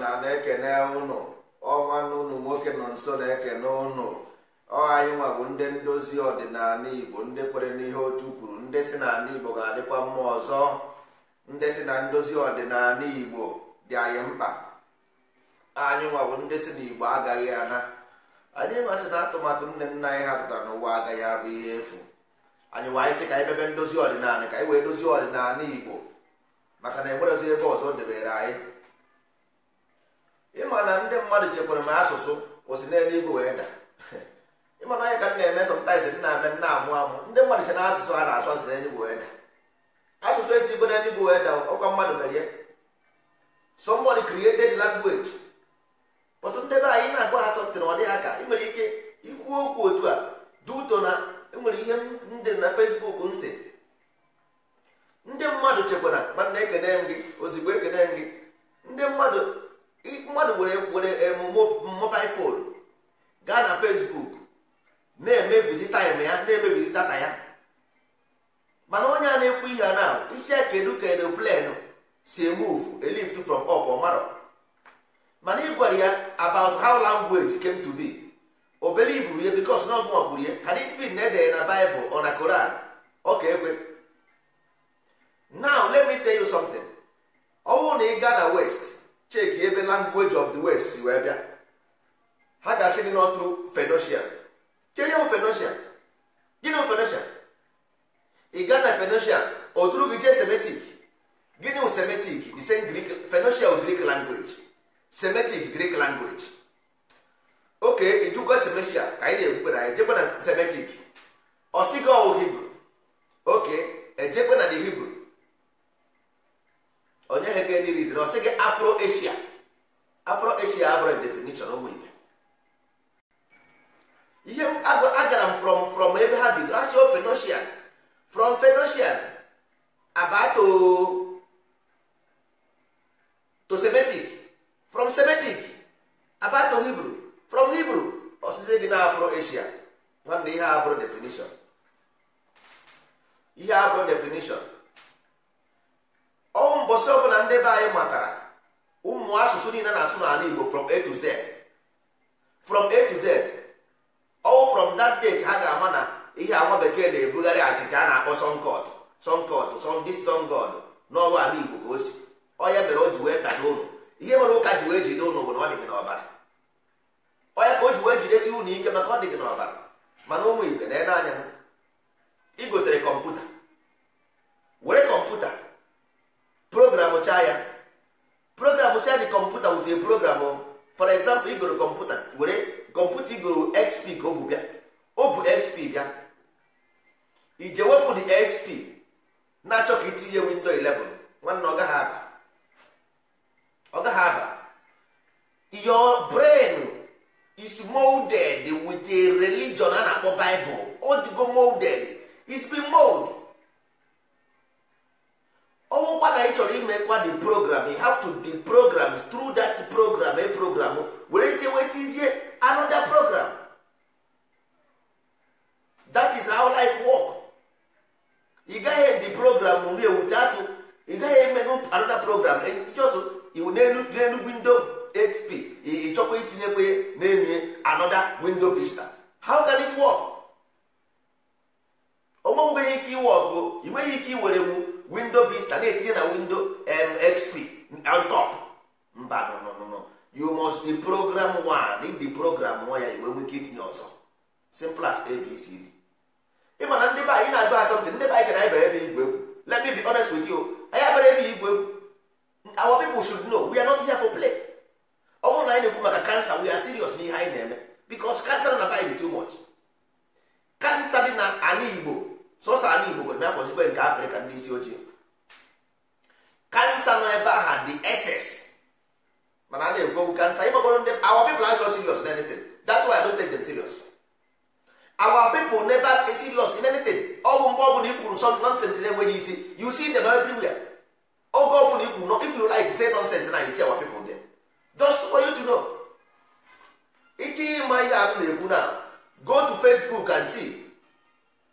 na na-ekene ụnụ ọnwanne ụnụ nwoke nọ nso na-ekene ụnụ ọ anyị ndị ndozi ọdịnala igbo ndị kwere n'ihe otu kwuru ndị si na igbo ga-adịkwa mma ọzọ ndị si na ndozi ọdịnala igbo dị anyị mkpa anyị nwa ndị si na igbo agaghị ana anyị masị na atụmatụ nne nna anyị ha tụtara n'ụwa agaghị abụ ihe efu anyị nwa anyị sị ka anyị mebe ndozi ọdịnala ka anyị wee dozi ọdịnala igbo maka na enwere ebe ọzọ debere anyị ịma na ndị mmadụ chekwara m asụsụ kwụsị n'elu igwe wee daa ịma na onye ka m na-eme sọmtaiz nna ame nna amụ amụ ndị mmadụ che na asụsụ a na-asụ asụ n'elu igwe wee da asụsụ esi igwe n'elu igwe wee da ọkwa mmadụ mere ya somebody created language but ndị be anyị na-agwa ha sọmtin ọ dịghị aka ị nwere ike ikwu okwu otu a duto na enwere ihe ndị dị na fesbuk m ndị mmadụ chekwara mana ekene m gị ozigbo ekene m gị ndị mmadụ mmadụ nwere were eh, mobile phone gaa na Facebook na eme taịm ya na ya mana onye a na-ekwu ihe a na isi ya kedu ka aeroplane si move a lift from up ọmarọ mana ị gwara ya about how language came to be obere ibu ya because na ọgụ ya had it been na edere na Bible or na Koran ọ ka ekwe now let me tell you something ọ bụrụ na ị gaa na west cheki ebe language of the west si wee bịa ha ga-asị gị n'ọtụ fenoshia ke ihe fenoshia gịnị fenoshia ị gaa na fenoshia oduru gị jee semetik gịnị semetik the same Greek o Greek language semetik Greek language oke ijukwa semeshia ka anyị na-ekwukwe na ejekwe na semetik ọsigọ Hibru oke ejekwe na the Hibru onye ha ga-enye rizin ọ sị gị afro asia afro asia abụrụ definition ụmụ ibe ihe agara m from from ebe ha bidoro asị o fenosian from fenosian abato to semitic from semitic abato hibru from hibru ọsịsị gị na afro asia nwanne ihe abụrụ definition ihe abụrụ definition ọnwụ mbọsị ọbụla ndị be anyị matara ụmụ asụsụ niile na-asụ n'ala Igbo from A to Z from A to Z ọwụ from that day ka ha ga-ama na ihe agwa bekee na-ebugharị achịcha a na-akpọ sonkọt sonkọt sọndị sọngọd n'ọrụ ala Igbo ka o si onye mere o ji wee ka n'ụlọ ihe mere ụka ji wee jide ụlọ bụ na ọ dị gị n'ọbara onye ka o ji wee jidesi ụlọ ike maka ọ dị gị n'ọbara mana ụmụ igbe na-ele anya igotere kọmputa were kọmputa program chaa ya program si dị kọmputa wute program for example igoro kọmputa were kọmputa igoro xp ka ọ bụ bịa ọ bụ xp bịa ije wepụ dị xp na-achọ ka itinye windo 11 nwanne ọ gaghị aba ọ gaghị aba your brain is molded with a religion a na-akpọ bible ọ dịgo molded it's been molded ọnwụkwa na ị chọrọ kwa the program you have to the program through that program a program were sie wetizie anoda program that is how life work ị gaghị the program nri ewute atụ ị gaghị emego another program just e, iwu n'elu windo hp ị chọkwa itinyekwa n'elu anoda windo vista how can it work ọ nweghị ike iwe ọgụ i nweghị ike iwere mụ windo vista na-etinye na windo mxp on top mba no no no you must be program one if program one ya igbe nwike itinye ọzọ simple as abcd ị ma na ndị be anyị na-agụ asọmpi ndị be anyị chere anyị ebe igwe egwu let me be honest with you anyị abere ebe igwe egwu our people should know we are not here for play ọ bụrụ na anyị na-ekwu maka kansa we are serious n'ihe anyị na-eme because kansa na na too much kansa dị na ala igbo sọsọ anyị Igbo nwere afọ zikwe nke Afrịka ndị isi ochie kansa nọ ebe aha dị ss mana a na-ekwu kansa ịgbagoro ndị our people na not serious in anything dat's why I don't take dem serious our people never serious in ọgwụ mgbe ọbụla some nonsense na-enweghị isi you see them everywhere oge ọbụla ikwu if you like say nonsense na you see our people just for you to know ichi ịma ihe ahụ go to Facebook and see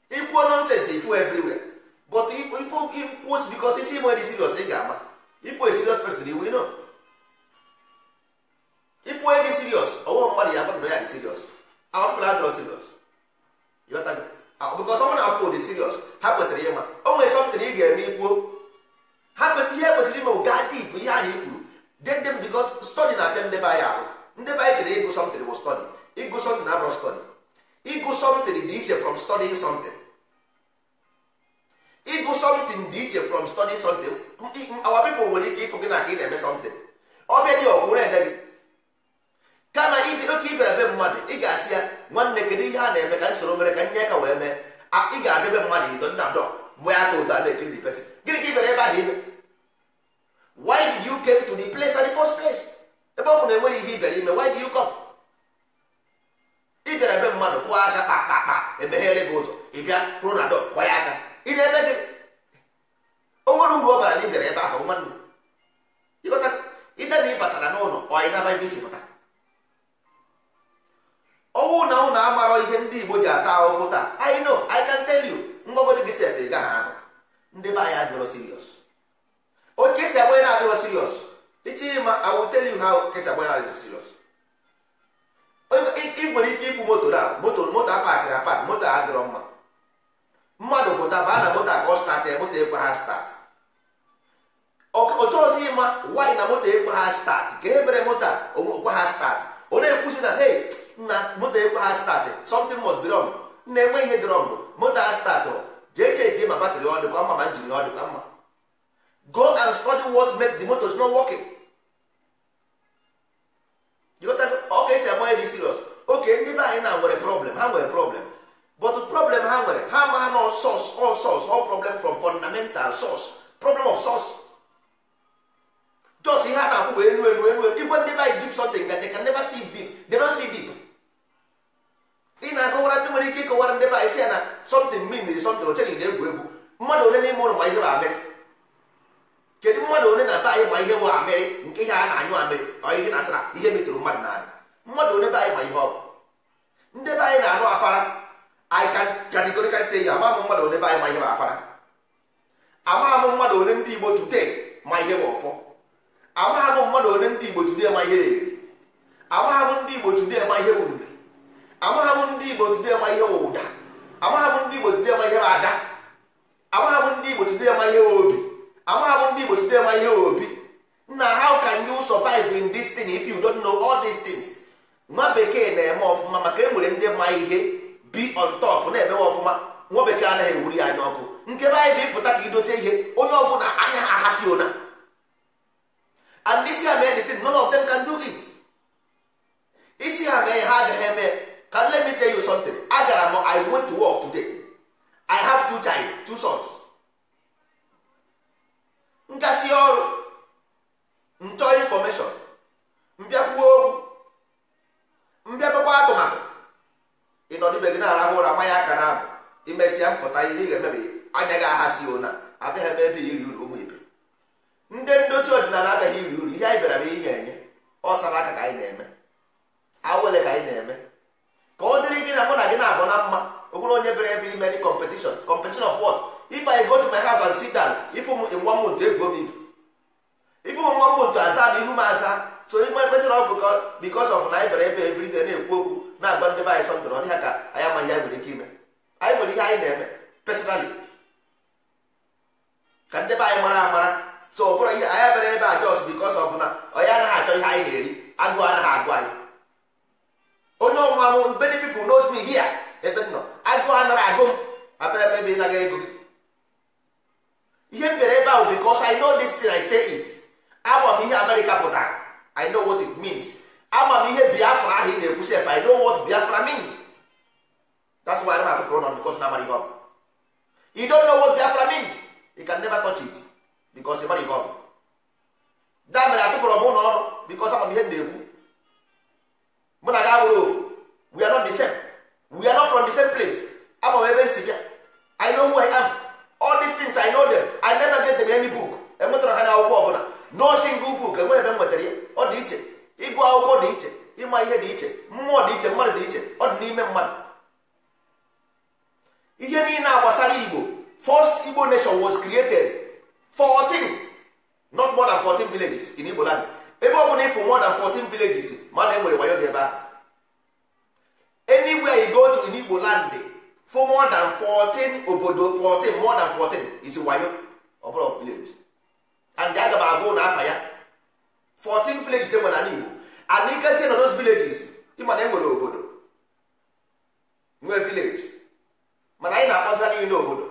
ikwuo nonsense ifu everywhere but ikwuo because ichi nwere serious ị ga-ama serious person iwu no ifu dị serious ọwụwa mmadụ ya agbado ya dị serious ahụpụla adịrọ serious bikos ọnwụ na akwụkwọ dị serious ha kwesịrị ịma o nwere something ị ga-eme ikwuo ha kwesịrị ihe kwesịrị ime ga dip ihe ahụ ikwuru then them because study na-abịa ndebe anyị ahụ ndebe anyị chere ịgụ something bụ study ịgụ something abụrụ study ịgụ ịgụ something dị iche from study something our people nwere ike ịfụ gị na ka ị na-eme something ọbịa dị ọkwụrụ ede gị kama oke ibere be mmadụ ị ga-asị ya nwanne kedu ihe a na-eme ka nsoro mere ka nye ka wee mee ị ga-abịa be mmadụ ido nna dọ mgbe ya ka otu a na-ekiri the person gịnị ka ibere ebe ahụ ibe why did you came to the place at the first place ebe ọ bụ na enweghị ihe ibere ime why did you come ibere be mmadụ kwụọ aka kpa kpa kpa emeghere gị ụzọ ịbịa kwụrụ na dọ ya aka ị na-eme gị o nwere uru ọ bara na ị bịara ebe ahụ nwanne ịdana ị batara n'ụlọ ọ na naba ebe isi pụta ọnwụ na ụlọ amarọ ihe ndị Igbo ji ata ahụhụ taa I know I can tell you ngwagodi gị sef ị gaghị ahụ ndị be anyị adịrọ sirios oke esi agba na-adịghọ sirios ichi ma I will tell you how kesi agba na-adịghọ sirios ị nwere ike ịfụ moto na moto moto apakịrị apakị moto adịrọ mma mmadụ pụta baa na moto ka ọ statị moto ekwe ha statị oche ọzọ ịma nwaanyị na moto ekwe ha statị ka e mere moto okwe ha statị ọ na-ekwusi na hey na moto ekwe ha statị something must be wrong na-enwe ihe dị moto ha statị jee chee ka ma batrị ọ dịkwa mma ma njiri ọ dịkwa mma go and study what make the motors not working ọ ka esi amanye dị serious oke ndị be anyị na nwere problem ha nwere problem but problem ha nwere ha ma nọ source all source all problem from fundamental source problem of source just ihe a na-afụ bụ elu elu elu igwe ndị by deep something that they can never see deep they ị na-akọwara ndị nwere ike ịkọwara ndị be isi ya na something mmiri is something ocheghị na egwu egwu mmadụ ole n'ime ụlọ ma ihe bụ amịrị kedu mmadụ ole na be anyị ma ihe bụ amịrị nke ihe a na-anyụ amịrị ọ ihe na-asara ihe metụrụ mmadụ n'ala mmadụ ole be anyị ma ihe ọ bụ ndị be anyị na arụ afara anyị kajikọrịkarịta ya ama mmadụ ole be anyị ma ihe bụ afara amaghị m mmadụ ole ndị igbo tute ma ihe bụ ọfọ amaghị m mmadụ ole ndị igbo today ma ihe na-eri amaghị m ndị igbo today ma ihe bụ mbe amaghị m ndị igbo today ma ihe bụ ụda amaghị m ndị igbo today ma ihe bụ ada amaghị m ndị igbo today ma ihe obi amaghị m ndị igbo today ma ihe obi na how can you survive in this thing if you don't know all these things nwa bekee na-eme ọfụma maka e nwere ndị ma ihe bi on top na-emewe ọfụma nwa bekee anaghị ewuri anya ọkụ nke be anyị bụ ịpụta ka idote ihe onye ọbụla anya ha ahachi ụna and isi ha mee anything none of them can do it isi ha mee ha agaghị eme ka let me tell you something agara m i went to work today i have two child two sons nkasi ọrụ nchọ infọmeshọn mbịakwuo okwu mbịakwakwa atụmatụ ịnọdụbe gị na-arahụ ụra mmanya aka na abụ imesịa mpụta ihe ị ga-emebe anya gị ahazi ona abịaghị ebe ebe iri uru ụmụ ibe ndị ndozi ọdịnala abịaghị iri uru ihe anyị bịara bụ ihe enye ọsara aka ka anyị na-eme awele ka anyị na-eme ka ọ dịrị gị na mụ na gị na-abụ na mma o onye bere ebe ime dị competition competition of what if I go to my house and sit down ifu m nwa m ntu ebuo m ibu ifu m nwa m ntu aza m ihu m aza so ime kwetara ọgụ because of na anyị bịara ebe ebiri na-ekwu okwu na-agba ndị be anyị sọntụrụ ọ dịghị ka anyị amaghị anyị nwere ike ime anyị nwere ihe anyị na-eme pesonali ka ndị be anyị mara amara so ọ ihe anyị abịara ebe a jos because of na onye anaghị achọ ihe anyị na-eri agụụ anaghị agụ anyị onye ọnwa mụ many people knows me here ebe m nọ agụụ anaghị agụ m abịara ebe ebe ị naghị ego gị ihe m bịara ebe ahụ because I know this thing I say it agba m ihe Amerịka pụtara I know it means ama m ihe biafra ahụ ị na-ekwu sef i know what biafra means that's why I'm at pronoun because na mara ihe ọbụ you don't know what biafra means you can never touch it because ị mara ihe da mere atụpụrụ m ụlọ ọrụ because ama m ihe m na-ekwu mụ na gị abụrụ we are not the same we are not from the same place ama m ebe m bịa i know who i am all these things i know them i never get them any book enwetara ha na n'akwụkwọ ọbụla no single book enweghị ebe m nwetara ya ọ dị iche ịgụ akwụkwọ dị iche ịma ihe dị iche mmụọ dị iche mmadụ dị iche ọ dị n'ime mmadụ ihe niile a gbasara igbo first igbo nation was created 14 not more than 14 villages in igbo land ebe ọ bụla ịfụ more than 14 villages mana e nwere wayo dị ebe anywhere you go to in igbo land for more than 14 obodo 14 more than 14 is wayo ọ bụla village and aga m agụ na aha ya 14 villages e nwere ala Igbo ala ike si nọ those villages ma na enwere obodo nwee village mana anyị na-akpọsa n'ihi n'obodo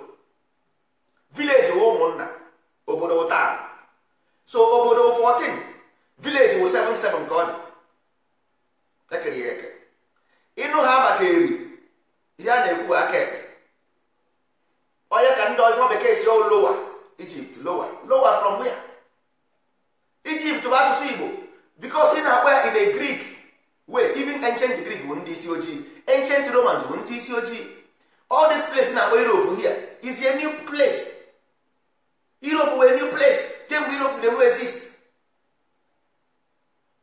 village wụ ụmụnna obodo taa so obodo 14 village wụ seven ka ọ dị ekere ya eke ịnụ ha maka eri ya na-ekwu aka ekpe onye ka ndị ọjọọ bekee si lowa Egypt lowa lowa from where Egypt bụ asụsụ Igbo because ị na-akpọ ya in a Greek way even ancient Greek bụ ndị isi ojii ancient Romans bụ ndị isi ojii all this place na-akpọ Europe here is a new place Europe were new place kemgbe Europe never exist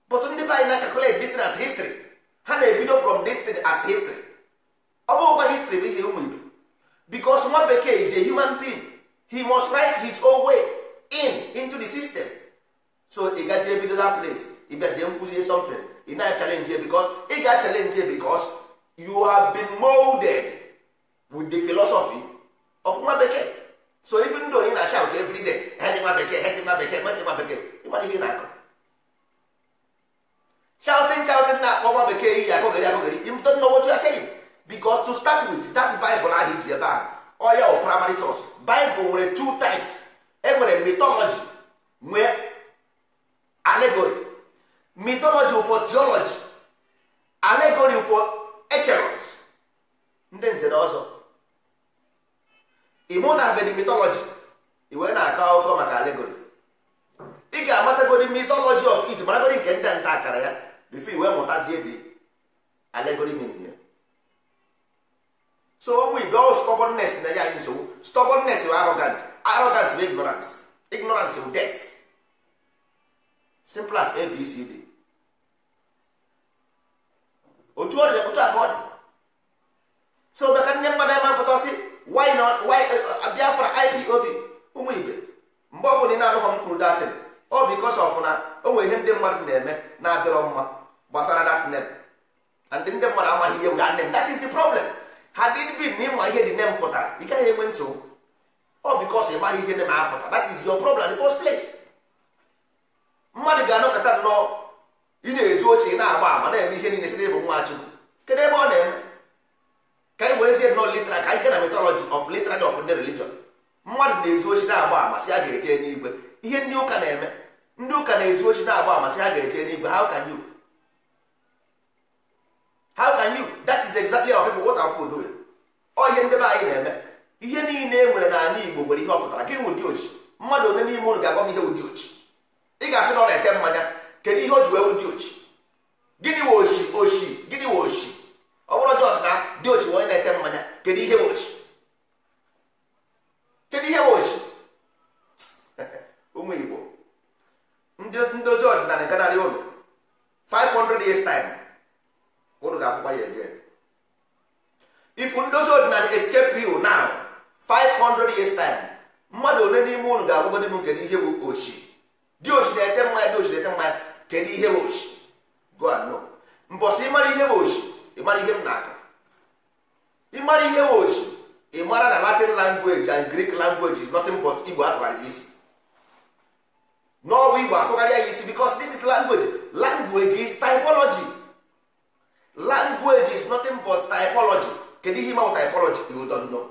but ndị be anyị na-calculate this as history ha na-ebido from this as history ọ history bụ ihe ụmụ Igbo because nwa bekee is a human being he must write his own way in into the system so ị gazi ebido that ị na ị ga you have been molded with the philosophy of nwa bekee so even though ị na shout every day hedị bekee bekee bekee ịmara ihe ị na-akọ shouting shouting na-akpọ nwa bekee iyi akọgịrị akọgịrị know what to start with that bible ahụ ji ebe ahụ ọya primary source bible nwere two types enwere mythology nwee allegory mythology for theology allegory for echeros ndị nze na ọzọ ịmụtabeghị mythology i wee na-akọ akụkọ maka allegory ị ga-amatagodi mythology of it maragodi nke ndị nta akara ya bifo iwe mụtazie dị allegory meaning ya so we go ọ stubbornness na ya anyị nsogbu stubbornness bụ arrogant arrogant bụ ignorance ignorance death simple abcd otu ọ dị otu a ka ọ dị so maka ndị mmadụ ebe mpụta si why not why eh, eh, biafra ipob ụmụ ibe mgbe ọ bụla ị na-anụghọ m kwuru datịrị ọ bụ because of na o nwere ihe ndị mmadụ na-eme na-adịrọ mma gbasara that name and ndị mmadụ amaghị ihe wụga nne m that is the problem ha did be na ịma ihe dị nne m pụtara ị gaghị enwe nsogbu ọ because ị maghị ihe dị ma apụta that is your problem in the first place mmadụ ga-anọkọta nnọọ ị na-ezu oche ị na-agba ama na-eme ihe niile sịrị ịbụ nwa chukwu kedu ebe ọ na-eme ka anyị werezie nnọọ litra ka anyị gana metọlọji of litra of ndị religion mmadụ na-ezu oche na-agba ama sị a ga-eje n'igwe ihe ndị ụka na-eme ndị ụka na-ezu oche na-agba ama sị ha ga-eje n'igwe how can you how can you that is exactly our people what our people doing ọ ihe ndị be anyị na-eme ihe niile e nwere n'ala Igbo nwere ihe ọ pụtara gịnị ochi mmadụ onye n'ime ụlọ ga-agwa m ihe ụdị ochi ị ga-asị na ọ na-ete mmanya kedu ihe o ji wee dị ochi gịnị we ochi ochi gịnị we ochi ọ bụrụ jọs na dị ochi onye na-ete mmanya kedu ihe we ochi kedu ihe we ochi ụmụ igbo ndozi ọdịnala ganarị ụlọ 500 years time ụnụ ga-afụkwa ya eje ifu ndozi ọdịnala escape you now 500 years time mmadụ ole n'ime ụlọ ga-agwagodi m nke n'ihe bụ ochi di na ete mmanya di na ete mmanya kedu ihe bụ ochi go and know mbọsị ịmara ihe bụ ochi ịmara ihe m na-akọ ịmara ihe bụ ochi ịmara na latin language and greek language is nothing but igbo atụgharịrị isi n'ọbụ igbo atụgharị ya isi because this is language language is typology language is nothing but typology kedu ihe ịmanwụ typology you don't know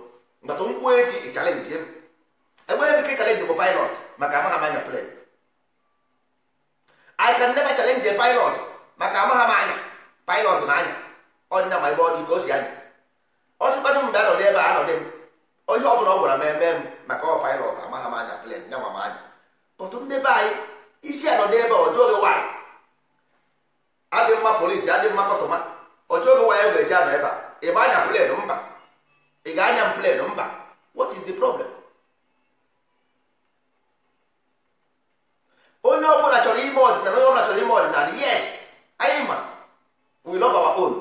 nkata nkwụ echi ịchalenji ebe ebe ike chalenji bụ pilot maka amaghị amanya plane can never challenge a pilot maka ama m anya pilot na anya ọdịna ma ọ dị ka o si anya ọ sịkwanụ m bịa nọrọ ebe a dị m onye ọ bụla ọ gwara m eme m maka ọ pilot ama m anya plen nyanwa m anya ọtụ ndị be anyị isi anọdị ebe ọjọọ gị nwaanyị adị mma polisi adị mma kọtụma ọjọọ gị nwaanyị ga-eji anọ ebe a ị ma anya plen mba ị ga-anya m plen mba what is the problem onye ọbụla chọrọ ime ọdịnala onye ọbụla chọrọ ime ọdịnala yes anyị ma we love our own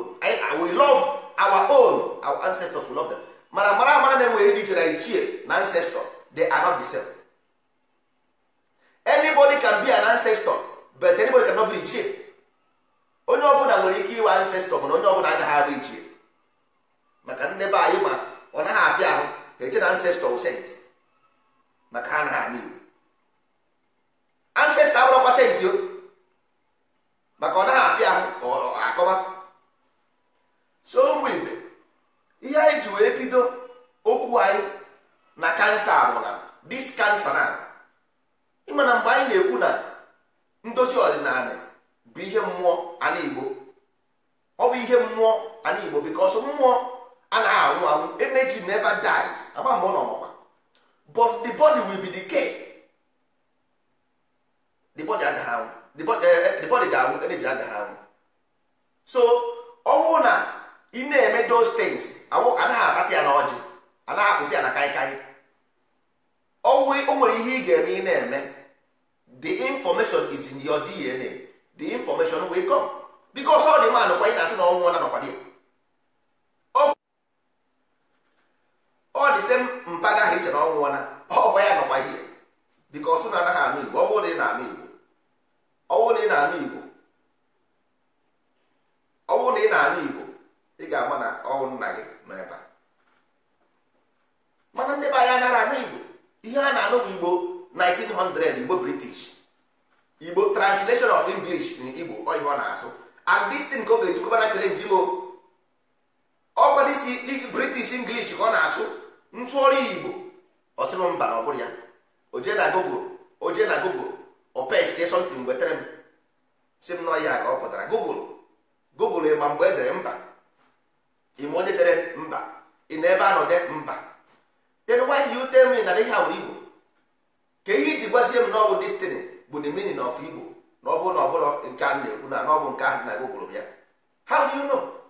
we love our own our ancestors we love them mana mara amara na enweghị ndị chere ichie na ancestor they are not the same anybody can be an ancestor but anybody cannot be ichie onye ọbụla nwere ike iwe ancestor mana onye ọbụla agaghị abụ ichie maka ndị be anyị ma ọ naghị afịa ahụ ha eche na ancestor sent maka ha na ha n'igbo ancestor abụrọkwa pasentị maka ọ naghị afịa ah. akọba so ụmụ ibe ihe anyị ji wee bido okwu anyị na kansa ahụ na dis kansa na ịmana mgbe anyị na-ekwu na ndozi ọdịnala bụ ihe mmụọ ala Igbo ọ bụ ihe mmụọ ala Igbo because mmụọ anaghị anwụ anwụ energy never dies agba mgbe ọ nọ but the body will be the body agaghị anwụ the body ga agaghị anwụ so ọ na ị na-eme those things anaghị akpata ya na ọjị anaghị akpụta ya na kaikai o nwere ihe ị ga-eme ị na-eme the information is in your DNA the information will come because ọ dị mma nụkwa ị na-asị na ọnwụ na nọkwa dị ọ dị same mpaga ha iche na ọnwụ na ọkwa ya nọkwa ihe because na anaghị anụ igbo ọ bụrụ na ị na-anụ igbo ọwụ na ị na-anụ Igbo ọwụ na ị na-anụ Igbo ị ga-ama na ọwụ nna gị nọ ebe a mana ndị be anyị anaghị anụ Igbo ihe a na-anụ bụ Igbo 1900 Igbo British Igbo translation of English na Igbo ihe ọ na-asụ and this thing ka ọ ga-ejikọba na challenge Igbo ọkwa disi British English ka ọ na-asụ ntụọrụ Igbo ọ sịrị mba na ọ bụrụ ya oje na gogo oje na gogo opestie something wetere m si m nọ ya ka ọ pụtara google google ịma mgbe e dere mba ịma onye dere mba ị na ebe anọ de mba then why do you tell me na ihe ahụ igbo ka ihe iji gwazie m na ọbụ destiny bụ the meaning of igbo na ọ bụrụ na ọ nke a na-ekwu na ọ bụ nke ahụ na google bịa how do you know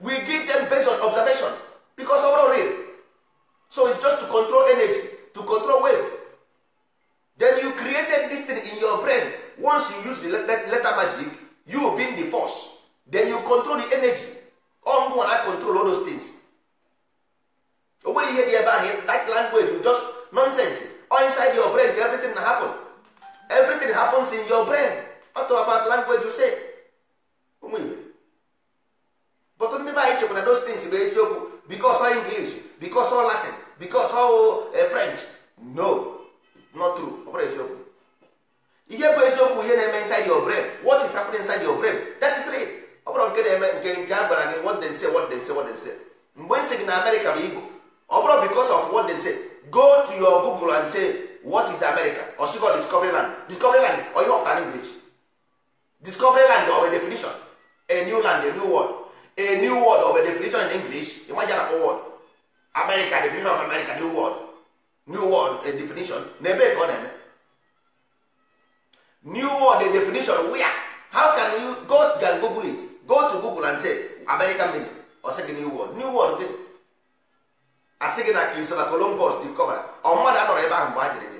we give them based on observation because ọ bụrụ real so it's just to control energy to control wave then you created this thing in your brain once you use the letter, magic you being the force then you control the energy all and I control all those things o you ihe dị ebe ahụ that language will just nonsense all inside your brain everything na happen everything happens in your brain what about language you say ọtụtụ ndị be anyị chekwara those things bụ eziokwu because all English because all Latin because all eh, French no not true ọ bụrụ eziokwu ihe bụ eziokwu ihe na-eme inside your brain what is happening inside your brain that is real ọ bụrụ nke na-eme nke nke a gwara gị what they say what they say what they say mgbe nsị gị na America bụ Igbo ọ bụrụ because of what they say go to your Google and say what is America osigo discovery land discovery land or ihe ọpụtara English discovery land or a definition a new land a new world a new word of a definition in english ịmaghị na word america definition of america new word new word a definition na ebe ka ọ na-eme new word a definition where how can you go can google it go to google and say american meaning ọ sị gị new word new word gịnị asị say na christopher columbus discover ọ mmadụ anọrọ ebe ahụ mgbe a jere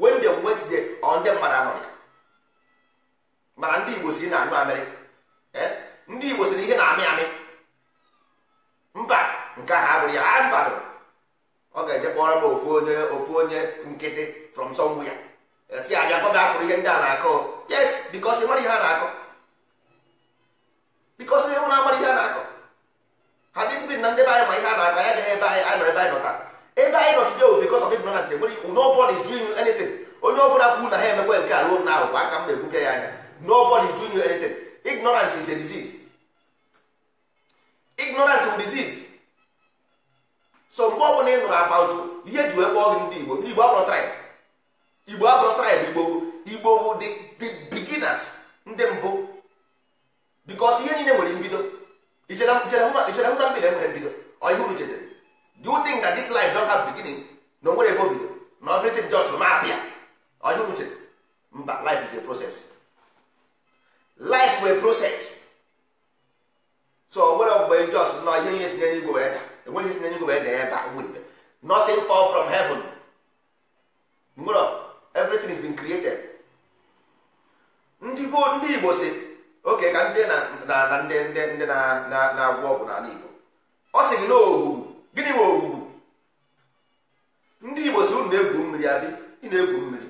when they wait there ọ ndị mmadụ anọrọ ya mana ndị igbo si na anụ amerịka ndị igbo sịrị ihe na-amị amị mba nke ahụ abụrụ ya a mba ọ ga-eje kpọrọ m ofu onye ofu onye nkịtị from somewhere ya e si abịa ga afụrụ ihe ndị a na-akọ yes bikos ịmara ihe a na-akọ bikos ihe nwere amara ihe a na-akọ ha dịdị bi na ndị be anyị ma ihe a na-akọ ya gaghị ebe anyị anyị nọ ebe anyị nọta ebe anyị nọ today bikos of ignorance enwere nobody is doing anything onye ọ bụla kwuru na ha emekwa nke a ruo na ahụ aka m na-egbupịa ya anya nobody is doing anything ignorance is a disease ignorance bụ disease so mgbe ọbụla ị nụrụ about ihe ji wee kpọọ gị ndị igbo igbo abụrụ tribe igbo abụrụ tribe igbo igbo bụ the beginners ndị mbụ bikos ihe niile nwere mbido ichere hụ na mbido enweghị mbido ọ ihe uru thing do you think that this life don't have beginning na o nwere ebe bido na just ma apịa ọ ihe mba life is a process life bụ a proses so onwere ọgbụgbe njọs nọ ihe niile si n'enye igwe wee da enwere ihe si n'enye igwe wee da ebe a wit nothing fall from heaven nwere everything is been created ndị ndị igbo si oke ka ndị na na ndị ndị ndị na-agwọ na ọgwụ n'ala igbo ọ sị gị na gịnị nwe ogbugbu ndị igbo si unu na-egwu mmiri abịa ị na-egwu mmiri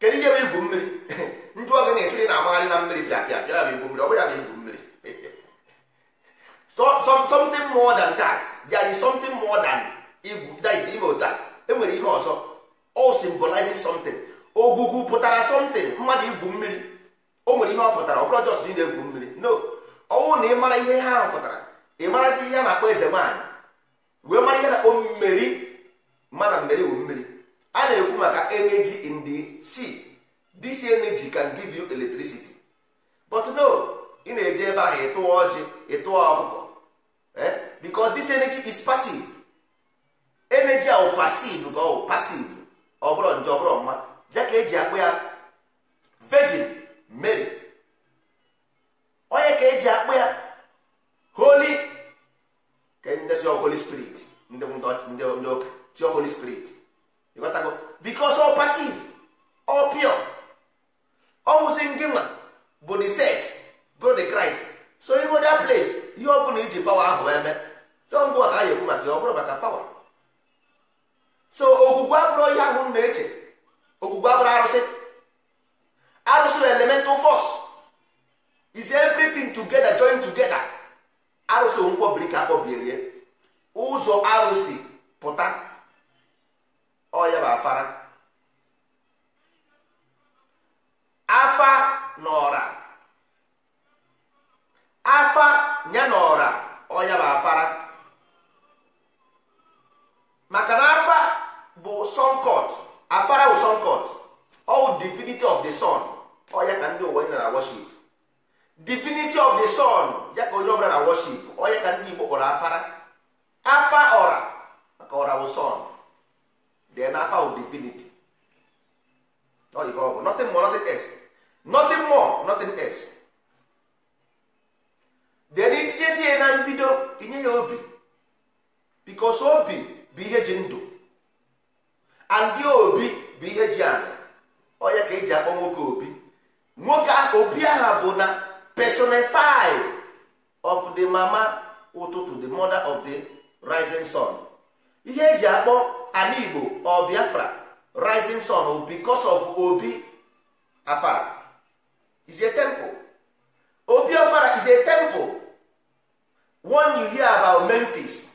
kedu ihe bụ igwu mmiri na-amagharị na mmiri bịa bịa pịa ya bụ mmiri ọ bụrụ ya bụ igwu mmiri something more than that there is something more than igwu that is ime ụta enwere ihe ọzọ O symbolize something Ogugu oh, pụtara something mmadụ igwu mmiri o oh, nwere ihe ọ pụtara ọ bụrụ just na egwu mmiri no ọnwụ na ị mara ihe ha pụtara ị marazi ihe a na-akpọ eze nwaanyị wee mara ihe na-akpọ mmeri mana mmeri bụ mmiri a na-ekwu maka energy in the sea this energy can give you electricity but no ị na-eji ebe ahụ ịtụwa ọjị ịtụwa ọkụkọ eh? because this energy is passive energy ahụ passive ka ọ passive ọ bụrụ nje ọ bụrụ mma ja ka eji akpụ ya virgin mary onye ka eji akpụ ya holy ka ndezi holy spirit ndị ndị ụka chi holy spirit ịghọtago because ọ passive ọ pure ọnwụsị ndị nwa bụ the set bụ the Christ so ịgo that place ihe ọ bụla iji pawa ahụ eme tọngụ a ka anyị ekwu maka ọ bụrụ maka pawa so okwukwe abụrụ ihe ahụ na-eche okwukwe abụrụ arụsị arụsị na elemental force is everything together join together arụsị nkwọbiri ka akpọbierie ụzọ arụsị pụta ọ ya bụ afara n'ọra afa ya n'ọra ọya bụ afara maka na afa bụ sọnkọt afara bụ sunkot all divinity of the sun ọya ka ndị ụwa na worship divinity of the sun ya ka onye ọbụla na ọ ọya ka ndị Igbo kpọrọ afara afa ọra maka ọra bụ sun dị na afa bụ divinity ọ bụ n'ọtị more n'ọtị else nothing more nothing else then itinyezie ya na mbido inye ya obi because obi bụ ihe ji ndụ andị obi bụ ihe ji ala onye oh, ka eji akpọ nwoke obi nwoke obi aha uh, bụ na personify of the mama ụtụtụ the mother of the rising sun ihe eji akpọ ala igbo or rising sun because of obi afara is a temple obi Afara is a temple one you hear about memphis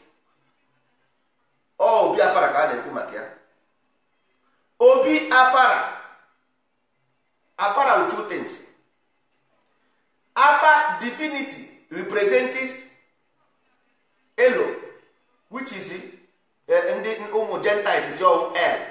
ọ oh, obi afara ka a na-ekwu maka ya obi afara afara two things afa divinity represents elo which is eh, eh, ndị ụmụ gentiles is your air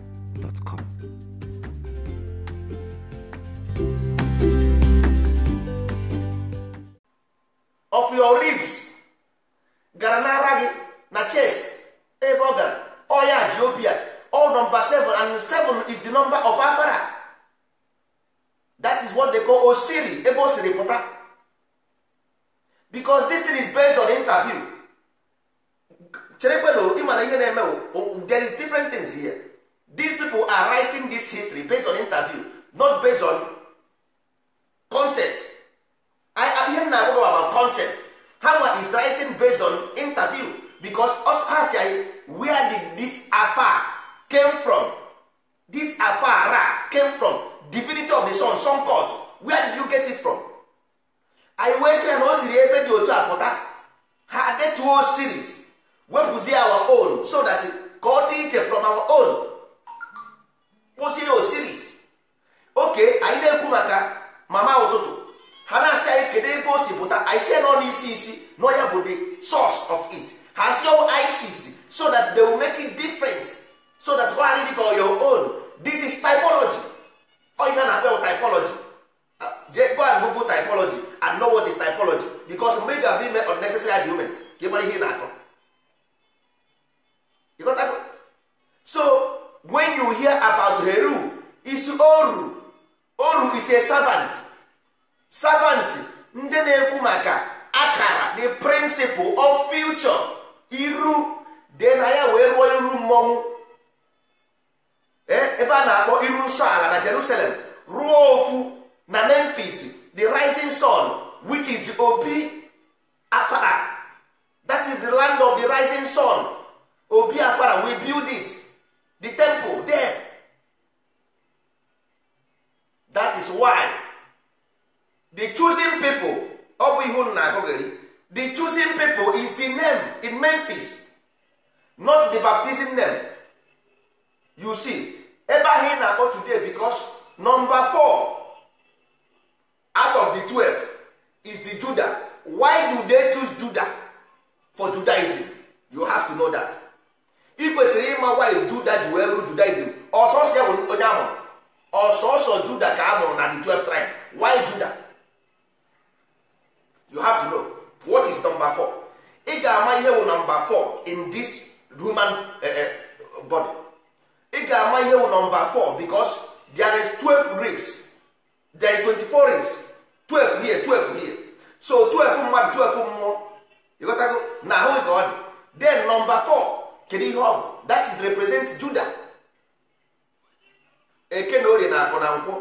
of your ribs gara n'ara gị na chest ebe ọ gara ọya all number seven and seven is the number of afara that is what they call osiri ebe o siri pụta because this thing is based on interview cherekwenu ịmana ihe na-eme there is different things here these people are writing this history based on interview not based on concept ihe m na-agwa about concept hawa is writing based on interview because us has where did this afar came from this afara came from divinity of the sun sun court where did you get it from anyị wee sị ya na o siri ebe dị otu a pụta ha detuo series wepụzie our own so that ka ọ dị iche from our own kpụzie osiris oke anyị na-ekwu maka mama ụtụtụ ha na-asị anyị kedu ebe o si pụta anyị nọ n'isi isi nọ ya bụ the source of it ha si ọwụ isis so that they will make it different so that ọ adịghị ka your own this is typology ọihe a na-akpọ typology je go and google typology and know what is typology because mgbe ị ga-abụ ime unnecessary argument ka ị ihe ị na-akọ so when you hear about heru is oru oru is a servant servant ndị na-ekwu maka akara the principle of future iru dee na ya wee rụọ iru mmọnwụ eh, ebe a na-akpọ iru nsọ ala na Jerusalem ruo ofu na Memphis the rising sun which is obi afara that is the land of the rising sun obi afara we build it the temple there that is why the choosing people ọ bụ na-agụgharị the choosing people is the name in Memphis not the baptism name you see ebe ahụ ị na-akpọ today because number four out of the twelve is the Judah why do they choose Judah for Judaism you have to know that ị kwesịrị ịma why juda ji wee bụrụ judaism ọsọsọ ya bụ onye amụrụ ọsọsọ juda ka a mụrụ na the 12 tribe why juda you have to know what is number 4 ị ga-ama ihe number 4 in this human eh, eh, body ị ga-ama ihe number 4 because there is 12 ribs there is 24 ribs 12 here 12 here so 12 mmadụ 12 mmụọ ịghọtago na ahụ ka ọ dị then number 4 kedu ihe ọ bụ that is represent Juda eke na na afọ na nkwụ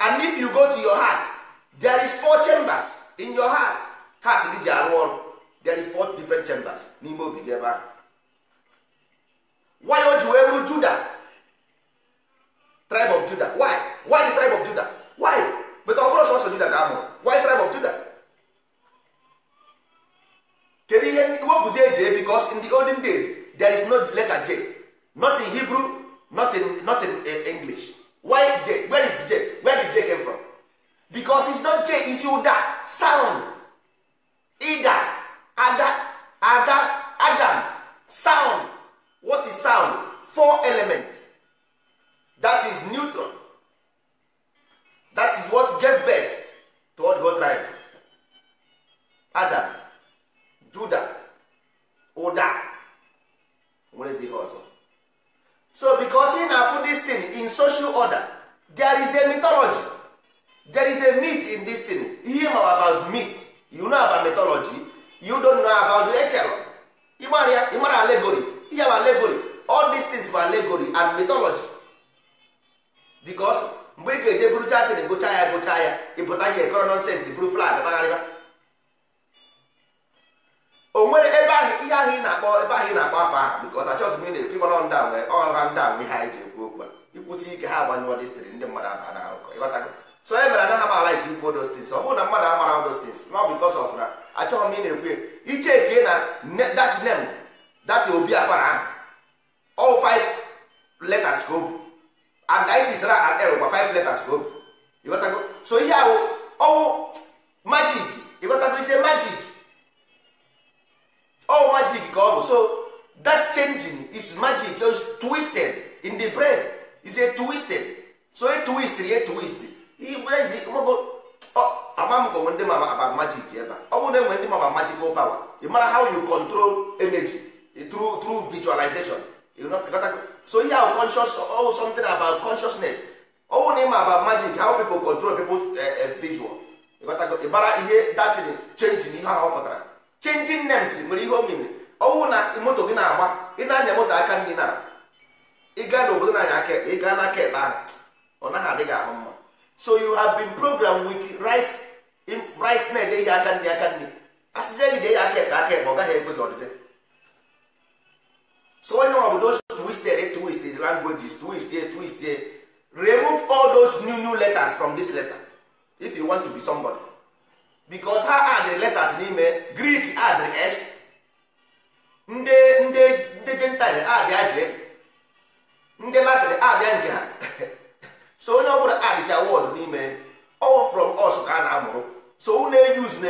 and if you go to your heart there is four chambers in your heart heart gị ji arụ ọrụ there is four different chambers n'ime obi gị ebe ahụ why o ji wee ru Juda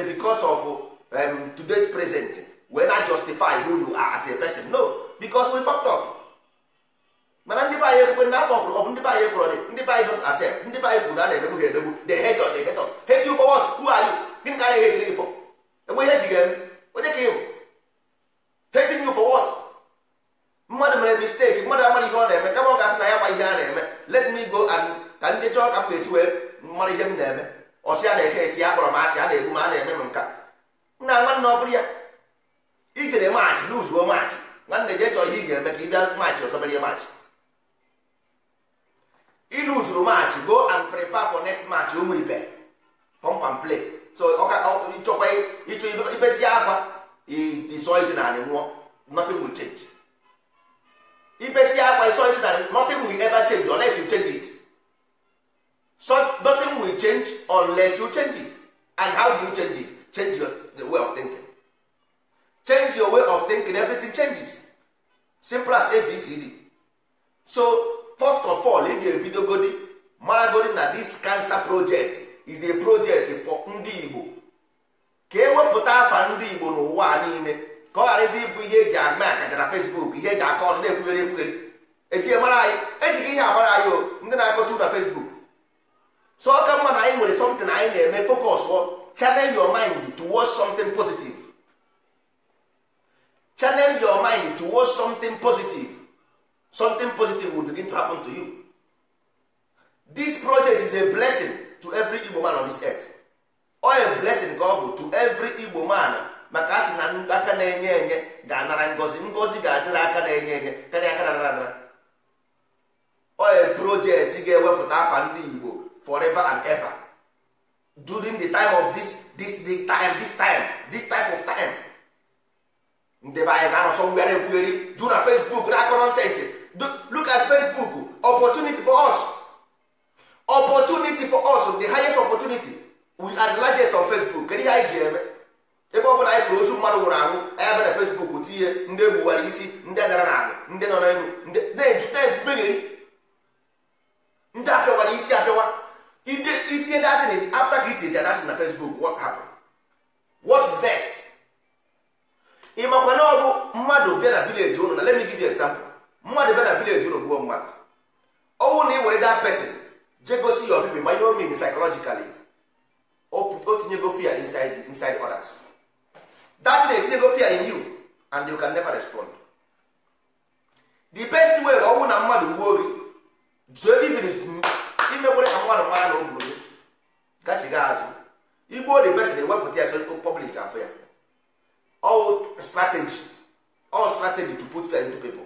be because of um, today's present wey na justify who you are as a person no because we fucked up mana ndị be anyị ekwe na afọ ọbụrụ ndị be anyị ekwụrọ dị ndị be don't accept ndị kwuru na a na-emegbu ha emegbu hate us they hate us hate you for what who are you gịnị ka anyị hate you for inside others that thing etinyego fear in you and you can never respond the best way na mmadụ gbuo gị zuo imekwere ka mmadụ mara na ogburu gị gachiga azụ igbuo the person ya so public afọ ya all strategy to put fear into people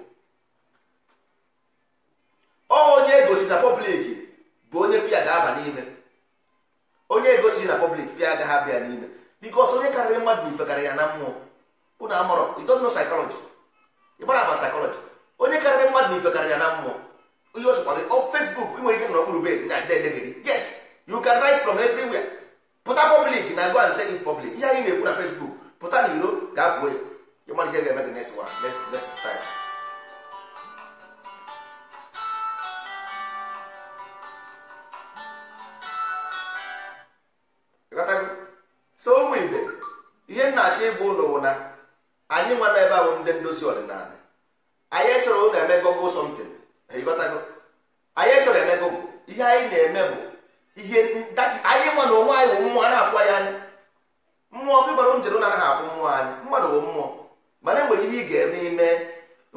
onye egosi na public bụ onye fear ga-aba e na public n'ime bikos onye karịrị mmadụ na ifekarị ya na mmụọ unu amụrụ idonno saịkọlọji ịgbara agba saịkọlọji onye karịrị mmadụ na ifekarị ya na mmụọ ihe ọsọkwa gị ọ fesbuk ị nwere ike nọ n'okpuru bed na dedegị yes you can write from everywhere pụta public na go and say in public ihe anyị na-ekwu na fesbuk pụta n'iro ga-abụ ya ịmalite ga-eme gị next one next time ha bụ ndị ndozi ọdịnala anyị esoro ụlọ eme gogo somtin anyị esoro eme ihe anyị na-eme bụ ihe anyị nwa na onwe anyị bụ mmụọ na-afụ anyị anyị mmụọ bụ ịgbara njem na-anaghị afụ mmụọ anyị mmadụ bụ mmụọ mana enwere ihe ị ga-eme ime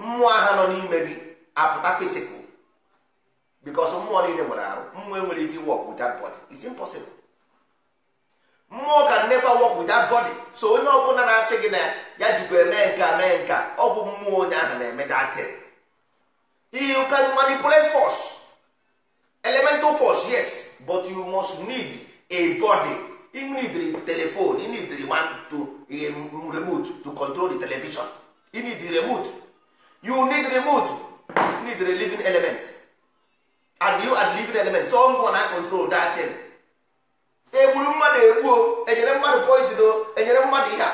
mmụọ ha nọ n'ime gị apụta fisikụ bikọs mmụọ niile nwere arụ mmụọ enwere ike iwe ọkụ that body is impossible mmụọ ka never work with that body so onye ọbụla na-asị gị na ya jikwa eme nka mee nka ọ bụ mmụọ onye ahụ na-eme datin you can manipulate force elemental force yes but you must need a body you need telephone you need one to eh, remote to control the television you need the remote you need remote you need a living element and you are living element someone na control that egburu mmadụ egbuo enyere mmadụ poison o enyere mmadụ ihe